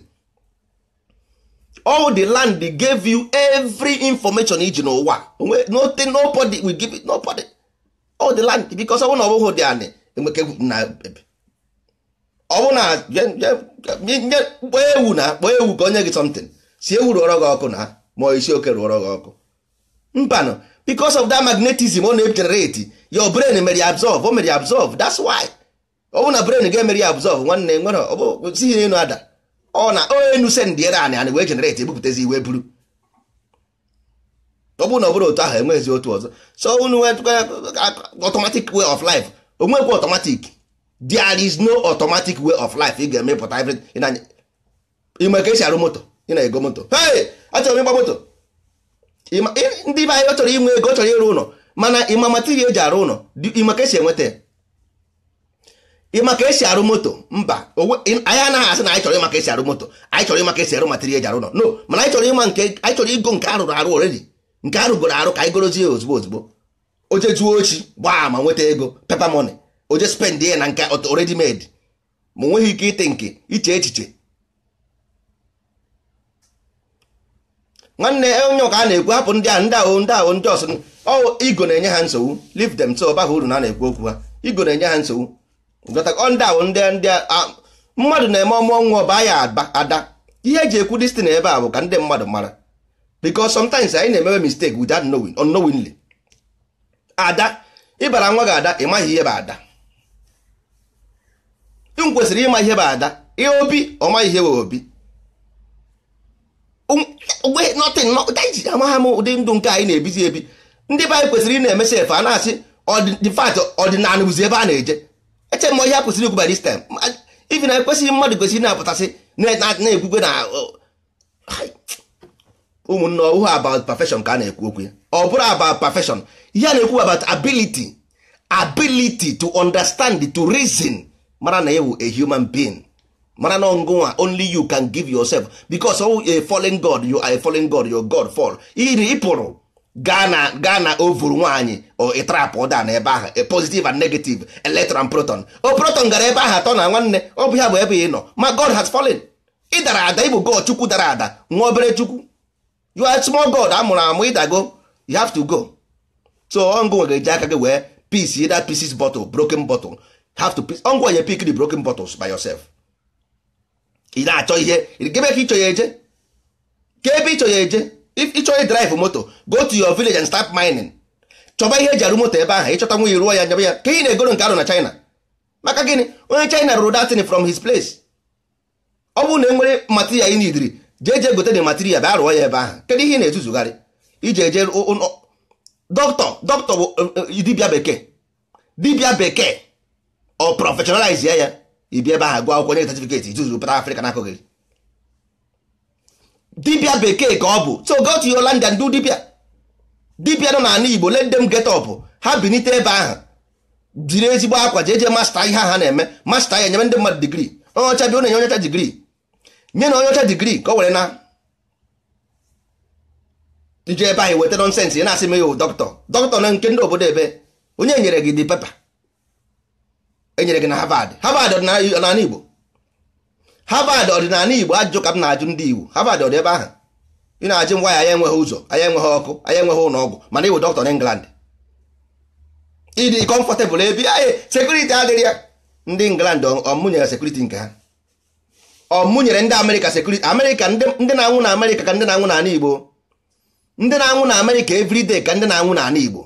all the land they gave you every information iji n'ụwa nothing nobody will give it nobody all the land because ọ bụrụ na ọ dị anị na ebe ọ na nye kpọọ ewu na kpọọ ewu ka onye gị something si ewu rụọrọ gị ọkụ na ma isi oke rụọrọ gị ọkụ mbanụ because of that magnetism ọ na-egenerate brain mere ya absorb o mere ya absorb that's why brain ga-emere ya absorb nwanne nwere n'elu ada ọ na enu sendịere anị anị wee generate ebupụtazi iwe buru ọ bụrụ na ọ bụrụ otu ahụ enweghịzi otu ọzọ so unu automatic way of life onwekwa automatic there is no automatic way of life ị ga-emepụta everything ịma ka esi arụ moto ị na-ego moto hey achọrọ m ịgba moto ndị be anyị chọrọ inwe ego ọ chọrọ ịrụ ụlọ mana ịma material eji arụ ụlọ ịma ka esi enweta ya ịma ka esi arụ moto mba anyị anaghị asị na anyị chọrọ ịma ka esi arụ moto anyị chọrọ ịma ka esi arụ material eji arụ nọ no mana anyị chọrọ ịma nke anyị chọrọ ịgo nke arụrụ arụ oredi nke arụgoro arụ ka anyị gorozie ozugbo ozugbo oje juo ochi gbaa ma nweta ego pepa mone oje spend ya na nke oredi made ma onweghị ike ite nke iche echiche nwanne e, onye ọka a na-ekwu hapụ ndị a ndị ahụ ndị ahụ ndị ọsụ igo na-enye ha nsogbu leave them so ọ uru na na-ekwu okwu ha igo na-enye ha nsogbu Ah, mmadụ na-eme ọmụọ nwa ọba ya ada ihe eji ekwu distin ebe a bụ ka ndị mmadụ mara because sometimes anyị na-emewe mistake without knowing ada ịbara nwa gị ada ị maghị ihe bụ ada m kwesịrị ịma ihe bụ ada ihe obi ọ maghị ihe bụ obi um, amagha m ụdị ndụ nke anyị na-ebizi ebi ndị be anyị kwesịrị ị na-emesi efe a na-asị ọdịnala bụzi ebe a na-eje eche m ihe a kwụsịrị ikwu by this time ibi na ekwesịghị mmadụ kwesịrị na-apụtasị na-ekwukwe na ụmụnne ọhụụ about perfection ka a na-ekwu okwu ya ọ bụrụ about perfection ihe a na-ekwu about ability ability to understand to reason mara na ewu a human being mara na ọngụnwa only you can give yourself because oh, a fallen god you are a fallen god your god fall iri ịpụrụ gaa na gaa na ovuru nwaanyị ịtrapụ ụda na ebe ahụ e, positive and negative electron proton o proton gara ebe ahụ atọ na nwanne ọ bụ ya bụ ebe ị nọ ma god has fallen ị dara ada ịbụ god chukwu dara ada nwa obere chukwu you are small god amụrụ amụ ịdago you have to go so ọngụ nwere eji aka gị wee piece either pieces bottle broken bottle have to piece ọngụ onye pick the broken bottles by yourself ị na-achọ ihe gebe ka ịchọ ya eje ka ebe ịchọ ya eje if ị chọrọ drive moto go to your village and start mining chọba ihe eji arụ moto ebe ahụ ịchọta nwunye ruo ya nyebe ya ka ị na-egoro nke arụ na China maka gịnị onye China rụrụ datin from his place ọ bụrụ na e nwere material ị nidiri jee jee gote dị material bịa rụọ ya ebe ahụ kedu ihe ị na ezuzugharị iji eje dọkịta dọkịta bụ e, e, dibịa bekee dibịa bekee ọ professionalize ya ya ibi ebe ahụ gụọ akwụkwọ nye certificate ituzu pụta Afrịka gị dibịa bekee ka ọ bụ so go to your land and do dibia dibia nọ n'ala igbo let them get up ha binite ebe ahụ jiri ezigbo akwa jeje masta ihe ha na-eme masta ya nyebe ndị mmadụ digrii onye ọcha bịa na-enye onye digrii nye na onye digrii ka o were na ije ebe ahụ weta nọnsensị ya na-asị m ya dọkịta dọkịta na nke ndị obodo ebe onye nyere gị di pepa enyere gị na Harvard Harvard n'ala Igbo Harvard ọdịnala Igbo ajụjụ ka m na-ajụ ndị Igbo Harvard ọ dị ebe ahụ ị na-ajụ ngwa ya anyị enweghị ụzọ anyị enweghị ọkụ anyị enweghị ụlọ ọgwụ mana ịwụ dọkịta n'England ịdị kọmfọtebụl ebe anyị sekuriti adịrị ya ndị England ọmụnyere sekuriti nke ha ọmụnyere ndị Amerịka sekuriti Amerịka ndị na-anwụ na Amerịka ka ndị na-anwụ n'ala Igbo ndị na-anwụ na Amerịka everyday ka ndị na-anwụ n'ala Igbo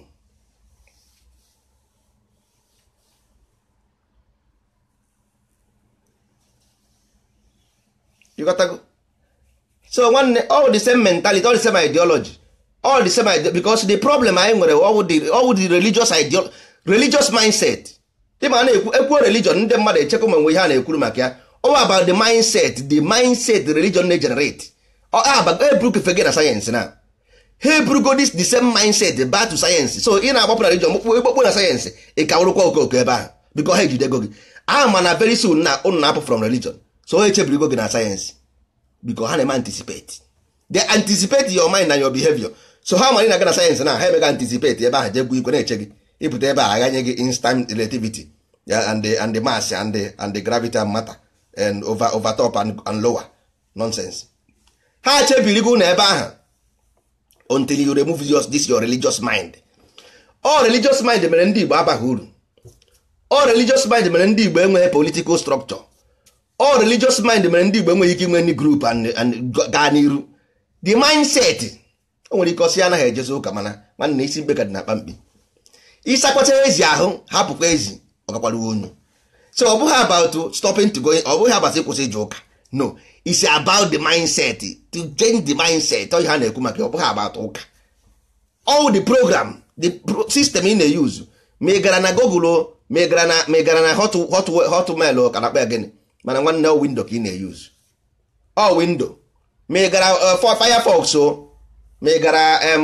ịghọtago so nwanne all the same mentality all the same ideology all the same ide because the problem anyị nwere ọwụ the religious ideology religious mindset dịma na-ekwu ekwuo religion ndị mmadụ echekwa ma nwe ihe a na-ekwuru maka ya all about the mindset the mindset religion na-generate ah, ebrukfege na sayensị na ha eburugodis the same mindset back to sayensị so ị na-agbapụ na religion mkpụkpụ ekpokpo na sayensị ị ka kawụrụkwa okooko ebe ahụ bikọ ha ejidego gị ama ah, na very soon na unu na-apụ from religion so onye chebirigo gị na sayensị biko ha na-eme anticipate they anticipate your mind na your behavior so ha mara ị na-aga na sayensị na ha emega anticipate ebe ahụ jegbu igwe na-eche gị ịpụta ebe a aghanye gị instant relativity and and the mass and the, and the gravity and matter and over, over top and, and lower nonsense ha chebirigo na ebe ahụ until you remove your, this your religious mind all religious mind mere ndị Igbo abaghị uru all religious mind mere ndị Igbo enweghị political structure all religious mind mere ndị Igbo enweghị ike inwe ndị group gaa n'iru the mindset o nwere ike ọsị anaghị ejezi ụka mana nwanne isi mbe ka dị na akpamkpi ịsakwata ezi ahụ hapụkwa ezi ọ ọgakwara onye so ọ bụghị about stopping to go ọ bụghị about ịkwụsị ije ụka no it's about the mindset to change the mindset ọ ha na-ekwu maka ọ bụghị about ụka all the program the system ị na-eyuzu ma ị gara na Google ma ị gara na hotmail ka na-akpa ya gịnị mana nwanne ọ windo ka ị na-eyuzu ọ windo megara gara eh, firefox o megara gara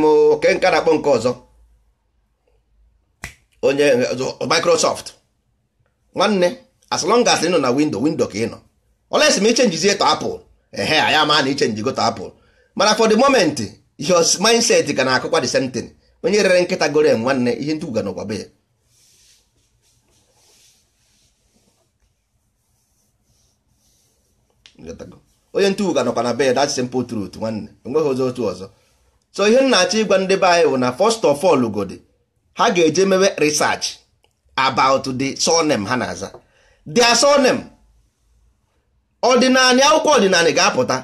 nka na-akpọ nke ọzọ onye eh, microsoft nwanne as long as ị nọ na windo windo ka ị nọ olesi ma ichenjizie to apple ehe ya ma na ichenjigo to apple mana for the moment your mindset ka na-akụkwa the same thing onye rere nkịta gore nwanne ihe ndị be ya onye ntụụka nọkwa na bed that's simple truth nwanne enweghị ụzọ otu ọzọ so ihe m na-achọ ịgwa ndị be anyị bụ na fọst of all godi ha ga-eje mewe research about the surname ha na-aza their surname ọdịnala akwụkwọ ọdịnala ga-apụta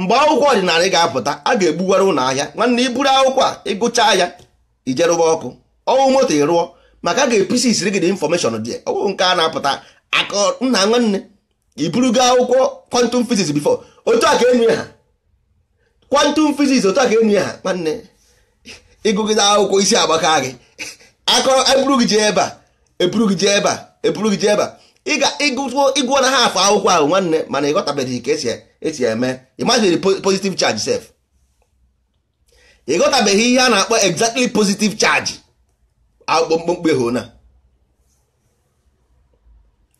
mgbe akwụkwọ ọdịnala ga-apụta a ga-egbuwara ụlọ ahịa nwanne iburu akwụkwọ a ịgụcha ya ijerụba ọkụ ọnwụ moto ịrụọ maka a ga-episi isiri gị dị infọmeshọn dị nke a na-apụta aka nna nwanne iburugo akwụkwọ kwantum physics before otu a ka enye ha kwantum physics otu a ka enye ha nwanne ịgụgide akwụkwọ isi agbaka gị akọ eburu gị jee ebe a eburu gị jee ebe a eburu gị jee ebe a ị ga ịgụọ na ha akwụkwọ ahụ nwanne mana ịghọtabeghị ka esi e, esi eme imagine positive charge sef ịghọtabeghị ihe a na-akpọ exactly pozitiv charge akpụkpọ ehona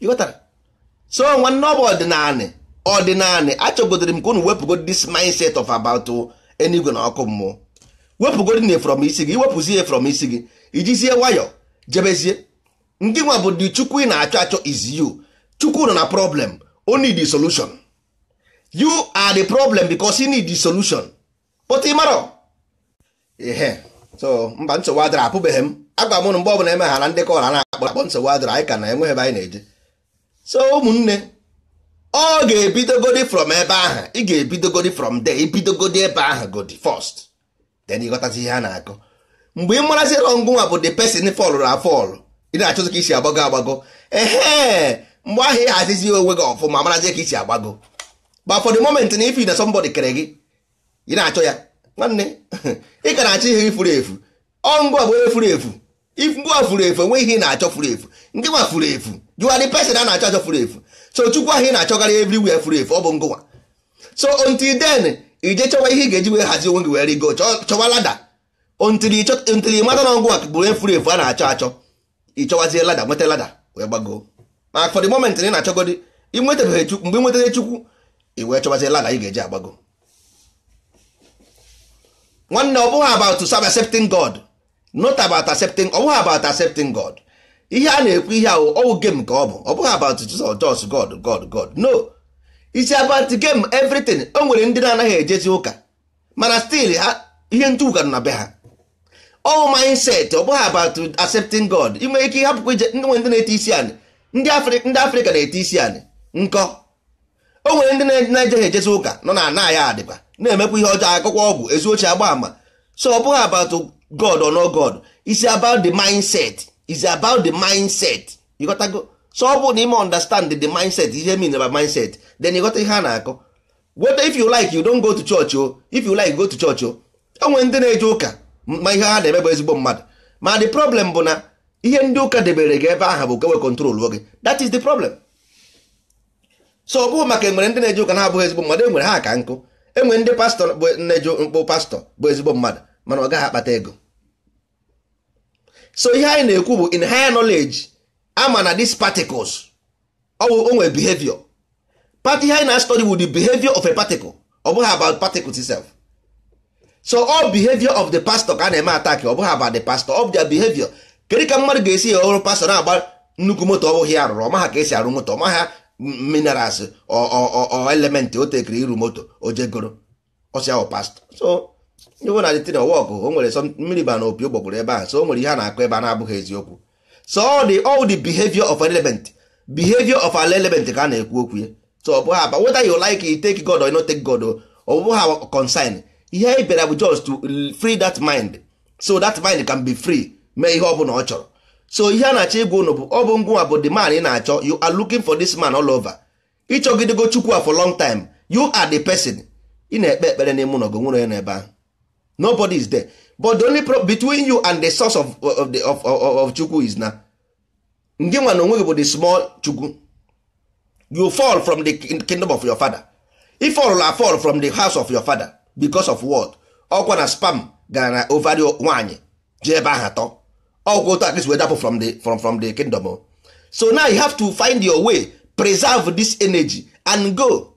ịghọtara so nwanne ọ bụ ọdịnanị ọdịnanị achọgodoro m ka unu wepụgod this mindset of about uh, enigwe na ọkụ mmụọ wepụgod na from isi gị iwepụzi ya isi gị ijizie nwayọ jebezie ndị nwa bụ dị chukwu ị na-achọ achọ is you chukwu nọ na problem o need the solution you are the problem because you need the solution but ị ihe so mba nsogbu adịra apụbeghị m agwa m mgbe ọbụla emeghara ndị kọra na-akpọ akpọ nsogbu adịra anyị ka na enweghị ebe anyị na-eje so ụmụnne ọ ga-ebidogodi from ebe ahụ ị ga-ebidogodi from there ibidogodi ebe ahụ godi first then ịghọtazi ihe a na-akọ mgbe ị marazi rọngụnwa bụ the person fọlụrụ afọlụ ị na-achọzi ka isi agbago agbago ehe mgbe ahụ ị hazizi onwe gị ọfụma marazie ka isi agbago but for the moment na ifi na somebody kere gị ị na-achọ ya nwanne ị ka na-achọ ihe ifuru efu ọ ngwa bụ onye furu efu ngwa furu efu onwe ihe ị na-achọ furu efu ndị furu efu you are the person a na-achọ achọ furu efu so chukwu ahụ ị na-achọgarị everywhere furu efu ọ bụ ngụwa so until then ije chọwa ihe ị ga-eji wee hazie onwe gị wee go chọwa lada until ị mata na ọgwụ a bụrụ efuru efu a na-achọ achọ ịchọwazie lada nweta lada wee gbagoo ma for the moment na na-achọgodi inwetabeghị chukwu mgbe nwetara chukwu ị wee chọwazie lada ị ga-eji agbago nwanne ọ bụghị about accepting God not about accepting ọ bụghị about accepting God ihe a na-ekwu ihe ahụ ọwụ game ka ọ bụ ọ bụghị about Jesus just God God God no it's about game everything o nwere ndị na-anaghị ejezi ụka mana still ihe ntụ ụka nọ na be ha ọwụ mindset ọ bụghị about accepting God ị nwere ike ịhapụkwa ije ndị nwere ndị na-ete isi anị ndị Afrịka na-ete isi anị nkọ o nwere ndị na-ejeghị ejezi ụka nọ na ana ya adịba na-emekwa ihe ọjọọ akụkọ ọgwụ ezi ochie agba ama so ọ bụghị about God or no God it's about the mindset is about the mindset you go so ọ bụrụ na ime understand the mindset ihe mean about mindset then you got ihe a na-akọ whether if you like you don't go to church o oh. if you like go to church oh. o onwe ndị na-eje ụka ma ihe ha na-eme bụ ezigbo mmadụ ma the problem bụ na ihe ndị ụka debere gị ebe aha bụ kewe control oge that is the problem so ọ maka enwere ndị na-eje ụka na-abụghị ezigbo mmadụ enwere ha ka nkụ enwere ndị pastọ bụ na-eje mkpụ pastọ bụ ezigbo mmadụ mana ọ gaghị akpata ego so ihe anyị na-ekwu bụ in higher knowledge ama na these particles ọwụ onwe behavior part ihe anyị na-study bụ the behavior of a particle ọ bụghị about particles itself so all behavior of the pastor ka a na-eme attack ọ bụghị about the pastor of their behavior kedu ka mmadụ ga-esi ya ọrụ pastor na-agba nnukwu moto ọ bụghị ya rụrụ ọmaha ka esi arụ moto ọmaha minerals elementị o tekiri iru moto o jegoro ọsịa ọ oh, pastor so ịhụ na detin wọkụ o nwere sọ mmiri ba na opi ụgbọgburu ebe a so o nwere ihe a na-akọ ebe a na-abụghị eziokwu so the all the behavior of an element behavior of an element ka a na-ekwu okwu ya so ọ bụghị aba whether you like it take God or not take God ọ bụghị ihe anyị bịara bụ just to free that mind so that mind can be free mee ihe ọ bụla ọ chọrọ so ihe a na-achọ ịgwa unu bụ ọ bụ ngwụnwa bụ the man ị na-achọ you are looking for this man all over ịchọgidego Chukwu for long time you are the person ị na-ekpe ekpere n'ime ụlọ gị nwere ya n'ebe ahụ nobody is there but the only problem between you and the source of, of, the, of, of, of chukwu is na ndị nwa na onwe gị bụ the small chukwu you fall from the kingdom of your father if all are fall from the house of your father because of what ọkwa na spam gara na ovari one? ji ebe ahụ atọ ọkwa otu at least dapụ from the, from, from the kingdom so now you have to find your way preserve this energy and go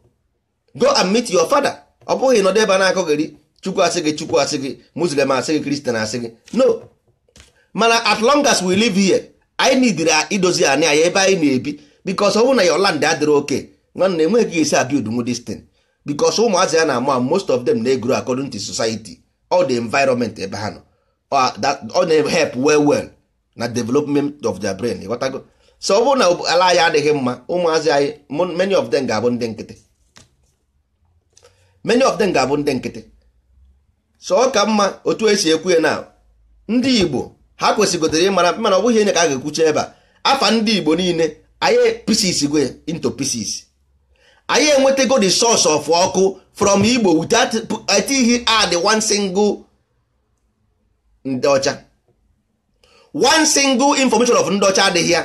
go and meet your father ọ bụghị nọdụ ebe a na-akọgheri chukwu asị gị chukwu asị gị muslim asị gị kristian asị gị no mana as long as we live here anyị nidiri idozi anị anyị ebe anyị na-ebi bikos ọ bụrụ na your land adịrị oke nwanne enweghị ka esi abild nwu destin bikos ụmụazị ya na-ama most of them na-egro according to society all the environment ebe ha nọ ọ na-help well well na development of their brain ịghọtago so ọ bụrụ na ala anyị adịghị mma ụmụazị anyị many of them ga-abụ ndị nkịtị many of them ga-abụ ndị nkịtị so ọ ka mma otu esi ekwu ya na ndị igbo ha kwesịgotere ịmara mana ọ bụghị onye ka a ga-ekwucha ebe a afa ndị igbo niile anyị pieces go into pieces anyị enwetago the source of ọkụ from igbo without atighị add one single ndị ọcha one single information of ndị ọcha adịghị ya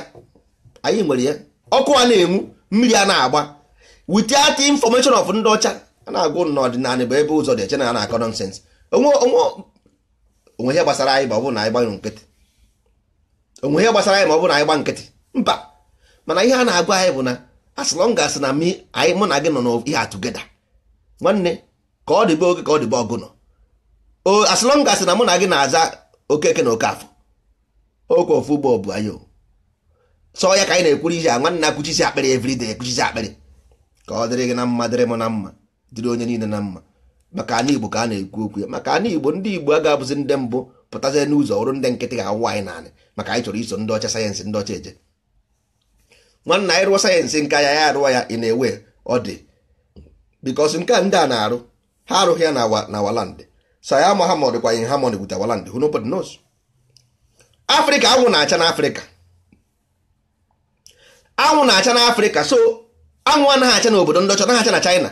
anyị nwere ya ọkụ a na-enwu mmiri a na-agba without information of ndị ọcha a na-agụ n'ọdịnala bụ ebe ụzọ dị eche na a na-akọ onwe ihe gbasara anyị ma ọ bụrụ na anyị gbanyụ nkịtị onwe ihe gbasara anyị ma ọ bụrụ na anyị gba nkịtị mba mana ihe a na-agwa anyị bụ na as long as na anyị mụ na gị nọ n'ihe atụgeda nwanne ka ọ dịbe oge ka ọ dịbe ọgụ nọ as long as na mụ na gị na-aza okeke na okafọ okwe ofu ugbo ọ bụ anyị sọ ya ka anyị na-ekwuru ihe a nwanne na-akwụchisi akpịrị everyday ekwuchisi akpịrị ka ọ dịrị gị na mma dịrị m na mma dịrị onye niile na mma maka ana igbo ka a na-ekwu okwu ya maka ana igbo ndị igbo aga abụzi ndị mbụ pụtazie n'ụzọ ọrụ ndị nkịtị ga-awụ anyị naanị maka anyị chọrọ iso ndị ọcha sayensị ndị ọcha eje nwanna anyị rụọ sayensị nke ya ya arụwa ya ị na-ewe ọ dị bikos nke a ndị a na-arụ ha arụghị ya na waland saya mahamod kwa in harmony with waland who nobody knows afrịka anwụ na-acha n'afrịka anwụ na-acha n'afrịka so anwụ anaghị acha n'obodo ndị ọcha naghị acha na china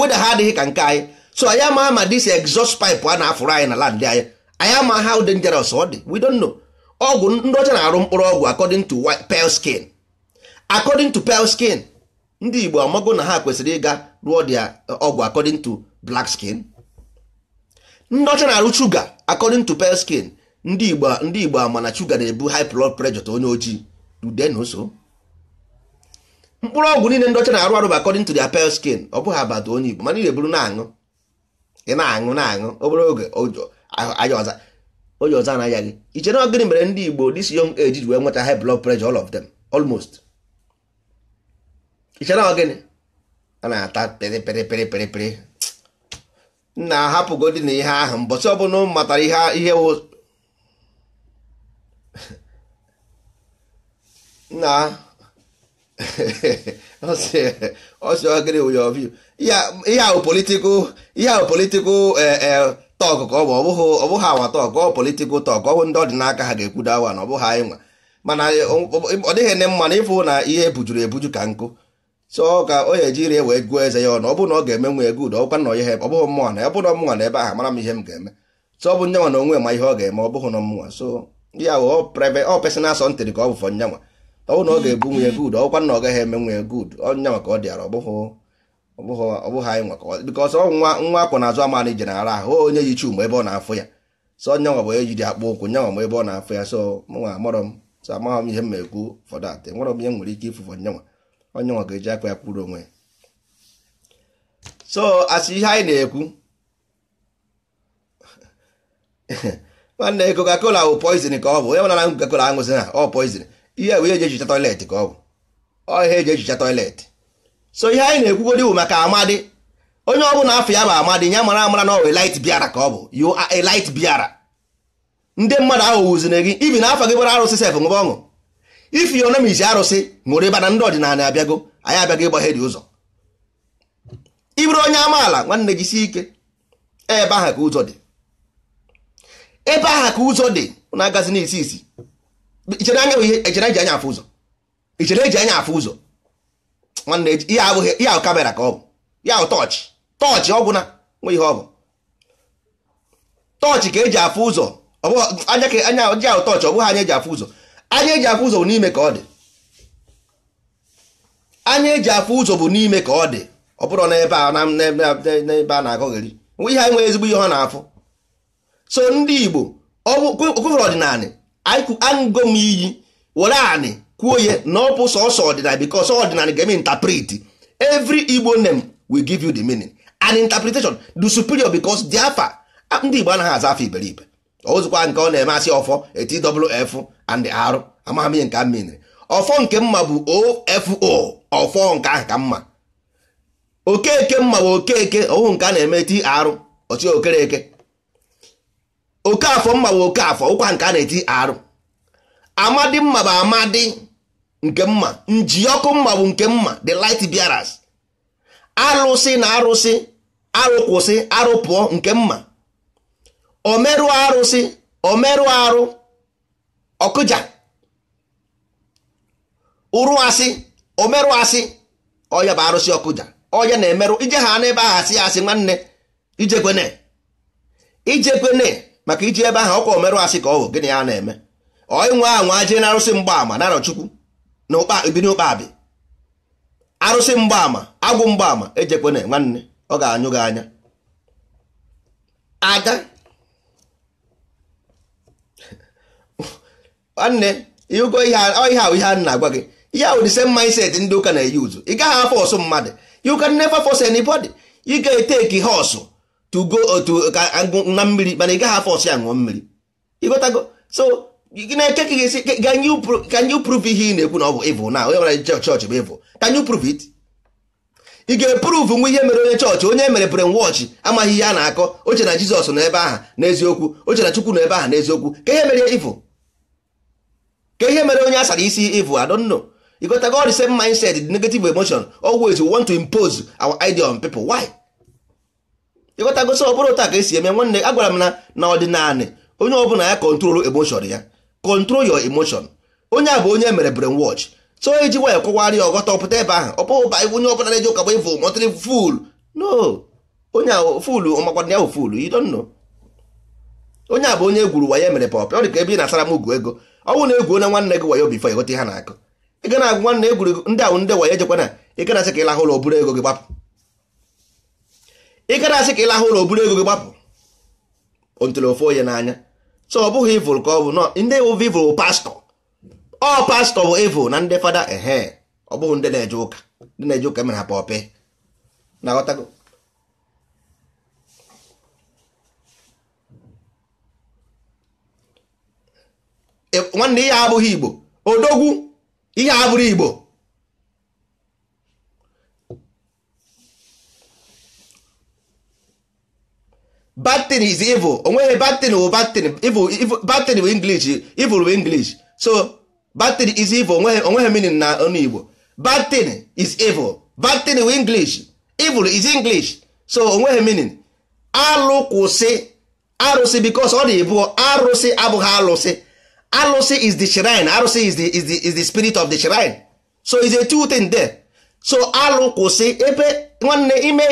weda ha adịghị ka nke anyị so anyị ama ma dis exhaust pipe a na-afụrụ anyị na land anyị anyị ama how dangerous ọ dị we don't know ọgwụ ndị ọcha na-arụ mkpụrụ ọgwụ according to pale skin according to pale skin ndị Igbo amago na ha kwesịrị ịga rụọ dia ọgwụ uh, according to black skin ndị ọcha na-arụ shuga according to pale skin ndị Igbo ndị Igbo ama na shuga na-ebu high blood pressure onye ojii ude na mkpụrụ ọgwụ niile ndị ọcha na-arụ arụ bụ according to their pale skin ọ bụghị abata onye Igbo mana ị na-eburu na-aṅụ ị na-aṅụ na-aṅụ obere oge anya ọza onye ọza anaghị gị iche na ọgịnị mere ndị Igbo this young age ji wee nweta high blood pressure all of them almost iche na ọgịnị a na-ata pịrị pịrị pịrị pịrị pịrị nna ahapụgodi na ihe ahụ mbọsị ọbụla m matara ihe ihe na ihe ahụ politikal ihe ahụ politikal tọk ka ọ bụ ọ bụghị awa tọk ọ politikal tọk ọ bụ ndị ọdịnaka ha ga-ekwudo awa na ọ bụghị anyị nwa mana ọ dịghị ne mma na ịfụ na ihe bujuru ebuju ka nkụ so ka o ji rie wee gụọ eze ya ọnụ ọ bụ na ọ ga-eme nwe ego udo ọkwa na ihe ọ bụghị mmụọ na ọ bụrụ na ebe ahụ mara m ihe m ga-eme so ọ bụ nyanwa na onwe ma ihe ọ ga-eme ọ bụghị na mmụọ so ya ọ personal sọntịrị ka ọ bụ fọ nyanwa ọnwụ na ọ ga-ebu nwunye good ọkwa na ọ gaghị eme nwunye good ọnya maka ọ dịara ọbụghị anyị nwaka bịkọs nwa nwa akwụ na azụ amana ije nara ahụ onye yi chuma ebe ọ na-afụ ya so nya nwa bụ onye jiri akpụ ụkwụ nya nwa ebe ọ na-afụ ya so nwa amarọ m so amaghị m ihe m ekwu ụfọdụ atị nwerọ m ihe nwere ike ifufu nyanwa onye nwa ga-eji akwa ya kwuru onwe ya so asị ihe anyị na-ekwu nwanne Coca-Cola bụ poizin ka ọ bụ onye mana Coca-Cola aṅụzi ha ọ poizin ihe bụ ihe eji toilet ka ọ bụ ọ ihe eji toilet so ihe anyị na-ekwugodi bụ maka amadi onye ọ bụla afọ ya bụ amadi ya mara amara na ọ bụ biara ka ọ bụ you are light biara ndị mmadụ ahụ wuzire gị ibi na afọ gị bara arụsị sef ṅụba ọṅụ ifi ya isi arụsị ṅụrụ ịba na ndị ọdịnala abịago anyị abịago ịgbaghe dị ụzọ iburu onye amaala nwanne gị si ike ebe aha ka ụzọ dị ebe aha ka ụzọ dị na-agazi n'isi isi ichere anya bụ ihe echere eji anya afụ ụzọ ichere eji anya afụ ụzọ nwanne ihe abụghị ihe ahụ kamera ka ọ bụ ya ahụ tọọchị tọọchị ọgwụ na nwe ihe ọ bụ tọọchị ka eji afụ ụzọ anya ka anya ọjị ahụ tọọchị ọ bụghị anya eji afụ ụzọ anya eji afụ ụzọ bụ n'ime ka ọ dị anya eji afụ ụzọ bụ n'ime ka ọ dị ọ bụrụ n'ebe a n'ebe a na-agọgheri nwe ihe enwe ezigbo ihe ọ na-afụ so ndị Igbo ọ bụ ọdịnala aṅụgo iyi were anị kwuo ya na ọ bụ sọsọ ọdịnal bikos ọdịnal ga-eme interpret every igbo name will give you the meaning and interpretation do superior bikos dị afa ndị igbo anaghị aza afa iberibe ozikwa nke ọ na-eme asị ọfọ etwf and arụ amaghị ihe nke a menere ọfọ nke mma bụ ofo ọfọ nke ahụ ka mma okeke mma bụ okeke ọhụ nke a na-eme tr ọchị okereke Okafọ mma bụ Okafọ ụkwa nke a na-eti arụ amadi mma bụ amadi nke mma ọkụ mma bụ nke mma the light bearers arụsị na arụsị arụkwụsị arụpụọ nke mma omeru arụsị omeru arụ ọkụja ụrụ asị omeru asị ọya bụ arụsị ọkụja ọya na-emerụ ije ha n'ebe ahụ asị asị nwanne ijekwene ijekwene maka iji ebe ahụ ọkwa omerụ asị ka ọ bụ gịnị ya na-eme onye anwa jee na arụsị mgbaama narọ chukwu na n'ụkpa ụkpabi arụsị mgbaama agwụ mgbaama ejekwana nwanne ọ ga-anyụ gị anya ada nwanne ịhụgo ihe ahụ ihe a na-agwa gị ihe ahụ dise mindset ndị ụka na-eyi ụzụ ị gaghị afọ ọsụ mmadụ you can never force anybody ị ga-eteki ha ọsụ to go uh, otu uh, ka na mmiri mana ị gaghị afọ ọsị aṅụọ mmiri ịgotago so na-eche ka ga-esi can you prove ihe ị na-ekwu na ọ bụ evil na onye nwere chọọchị bụ evil can you prove it ị ga-eprove nwa ihe mere onye chọọchị onye mere brainwash amaghị ihe a na-akọ oche na Jizọs n'ebe aha n'eziokwu oche na Chukwu n'ebe aha n'eziokwu ka ihe mere evil ka ihe mere onye asara isi evil I don't know ịgotago all the same mindset the negative emotion always we want to impose our idea on people why ịghọtagosi ọ bụrụ ụta ka esi eme nwanne agwara m na na ọdịnala onye ọbụla ya kọntrol emoshọn ya kọntrol yọ emoshọn onye a bụ onye mere brain wọch so iji e nwayọ kọwara ya ọghọta ọpụta ebe ahụ ọ pụghị ba onye ọbụla na-eji ụka bụ ịvụ mọtịrị ful no onye fulu ọmakwana ya bụ fulu you don't onye a bụ onye egwuru wayo mere pap ọ dị ka ebe ị m ugu ego bụ na egwu onye nwanne gị wayo bifo ịghọta ihe na-akụ ị ga na nwanne egwuru ndị ahụ ndị waya ejekwana ị ga asị ka ịlahụ ụlọ buru ego gị gbapụ ị gara asị ka ị lahụ ụlọ oburu ego gị gbapụ ntụrụ ofe onye n'anya so ọ bụghị ivụl ka ọ bụ ndị wụv ivụl pastọ ọ pastọ bụ ivụl na ndị fada ehe ọ bụghị ndị na-eje ụka ndị na-eje ụka mere ha pọpị na ghọtago nwanne ihe abụghị igbo odogwu ihe abụrụ igbo batin is evil onweghị batin bụ batin batin bụ english evil bụ english so batin is evil onweghị meaning na ọnụ igbo batin is evil batin bụ english evil is english so onweghị meaning alụ kwụsị arụsị because ọ na-ebu arụsị abụghị alụsị alụsị is the shrine arụsị is the, is the, is the spirit of the shrine so is a two thing there so alụ kwụsị ebe nwanne ime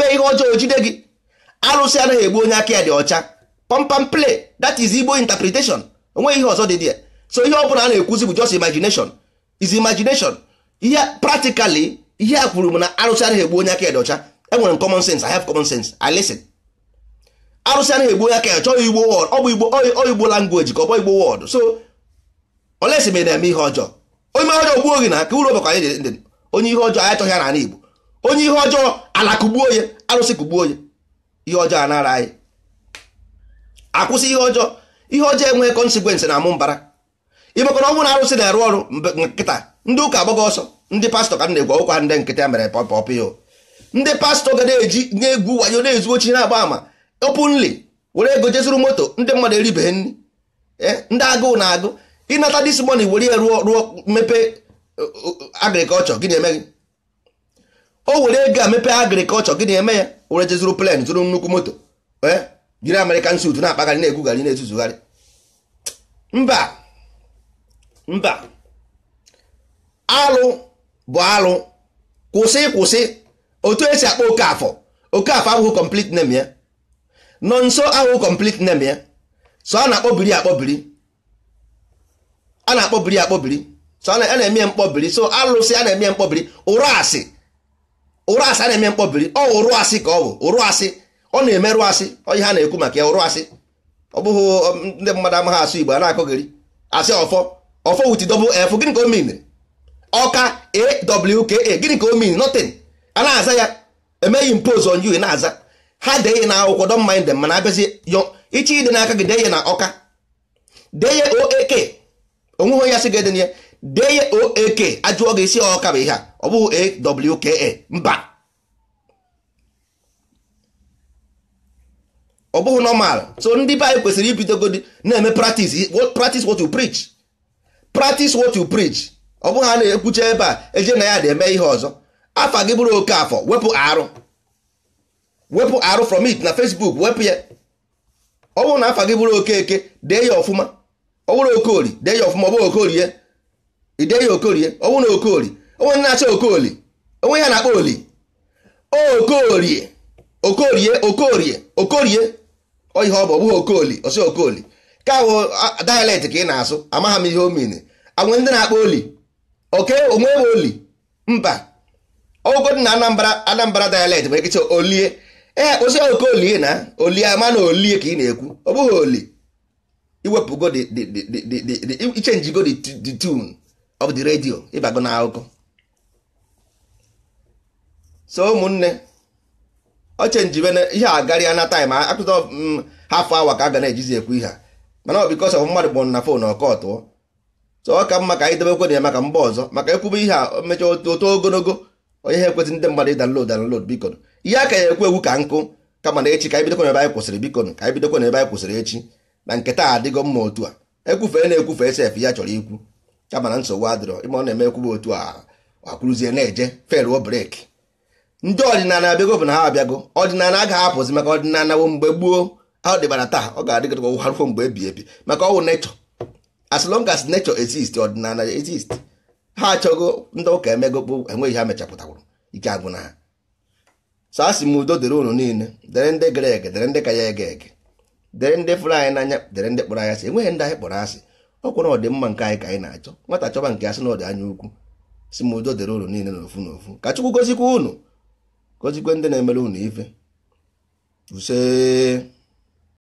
ihe ọjọọ jide gị arụsị anaghị egbu onye aka ya dị ọcha pompam play that is igbo interpretation onweghị ihe ọzọ dị dị so ihe ọ bụla a na-ekwuzi bụ just imagination is imagination ihe practically ihe a kwuru m na arụsị anaghị egbu onye aka ya dị ọcha enwere m common sense i have common sense i listen arụsị anaghị egbu onye aka ya chọghị igbo word ọ bụ igbo ọ igbo language ka ọ bụ igbo word so olesi ma na-eme ihe ọjọọ onye ọjọọ gbuo gị na ka uru ọbakwa onye ihe ọjọọ anyị achọghị ya na igbo onye ihe ọjọọ ala kụgbuo arụsị kụgbuo onye ihe ọjọọ anara anyị akwụsị ihe ọjọọ ihe ọjọọ enweghị konsekwensị na amụ mbara imekọrọ ọnwụ na arụsị na-arụ ọrụ nkịta ndị ụka agbaghị ọsọ ndị pastọ ka m na-egwu ọkwa ndị nkịta e mere pọpọpịo ndị pastọ ga na-eji na-egwu wanyo na-ezu ochi na-agba ama openly were ego jezuru moto ndị mmadụ eribeghị nri eh, ndị agụụ na-agụ ịnata dis money were ya rụọ rụọ mepee eh, agrikọlchọ gị na-eme gị o were ego a mepee agrikọlchọ gị na-eme ya were jezuru plen zụrụ nnukwu moto eh? jiri American suit na-akpagharị na-egwugharị na-ezuzugharị mba mba alụ bụ alụ kwụsị kwụsị otu esi akpọ Okafọ Okafọ abụghị complete name ya eh? nọ nso ahụghị complete name ya eh? so a na-akpọbiri akpọbiri a na-akpọbiri akpọbiri so a na-eme mkpọbiri so alụsị a na-eme mkpọbiri ụra asị ụrụ asị a na-eme mkpọbiri ọ ụrụ asị ka ọ bụ ụrụ asị ọ na-emerụ asị ihe ha na-ekwu maka ya ụrụ asị ọ bụghị ndị mmadụ amaghị asụ igbo a na-akọgịrị asị ọfọ ọfọ wit double f gịnị ka o min ọka awka gịnị ka o min notin a na-aza ya emeghị impose on you na-aza ha dee na akwụkwọ don't mind them mana abịazi iche ide n'aka gị dee na ọka dee ya oak onweghị onye asị ga-eden ya dee ya oak e ajụọ gị isi ọka bụ ihe a ọ bụghị awka e e. mba ọ bụghị normal so ndị be anyị kwesịrị ibidogodi na-eme practice practice what you preach practice what you preach ọ bụghị a na-ekwucha ebe a eje na ya dị eme ihe ọzọ afa gị bụrụ oke afọ wepụ arụ wepụ arụ from it na Facebook wepụ ya ọ bụrụ na afa gị bụrụ oke eke dee ya ọfụma ọ bụrụ okorie dee ya ọfụma ọ bụghị ya. ide ya okorie ọnwụ na okori onwe na-acha okoli onwe ya na-akpọ oli okorie okorie okorie okorie oyihe ọ bụ ọ bụghị okoli osi okoli ka ahụ dialect ka ị na-asụ amagha m ihe o mini ndị na-akpọ oli oke onwe m oli mba ọgụgụ na anambra anambra dialect bụ ekecha olie ee osi okolie na olie ama na olie ka ị na-ekwu ọ bụghị oli iwepụgo ichenji go the tune ọ bụ dị redio ịbago na akụkọ so ụmụnne ọ chenjibe ihe a garịa na taịm akụta mm, haf awa ka a ga na-ejizi ekwu ihe a mana ọ bikọs ọf mmadụ kpọrọ na fon ọkọtụọ so ọ ka mma ka anyị debekwe na ya maka mba ọzọ maka ekwube ihe a mechaa oto ogologo onye ha ekwesị ndị mmadụ ịdanlod danlod bikon ihe a ka ya ekwu egwu ka nkụ kama na echi ka anyị bidokwa n'ebe anyị kwụsịrị bikon ka anyị bidokwa n'ebe anyị kwụsịrị echi na nketa a adịgo mma otu a ekwufe na-ekwufe esef ya chọrọ ikwu ya mana nsogbu adịrọ ime ọ na-emekwuba eme otu a akwụrụzie na-eje feruo breki ndị ọdịnala abịago bụ na ha abịago ọdịnala agaghị apụzi maka ọdịnala wo mgbe gboo ọ dịbara taa ọ ga-adịgịdịkwa ụgharụfo mgbe ebi ebi maka ọwụ nechọ as long as nechọ exist ọdịnala exist ha achọgo ndị ụka emego kpo enweghị ha mechapụtakwuru ike agwụ na ha so a sị m udo dịrị unu niile dịrị ndị gere ege dere ndị ka ya ege ege dere ndị fụrụ anyị n'anya dere ndị kpọrọ anyị asị enweghị ndị anyị kpọrọ asị ọ kwụrụ ọdịmma nke anyị ka anyị na-achọ nwata chọba nke ya sị na ọdị anya ukwu si m udo dịrị ụlọ niile n'ofu n'ofu ka Chukwu gozikwa unu gozikwe ndị na-emere unu ife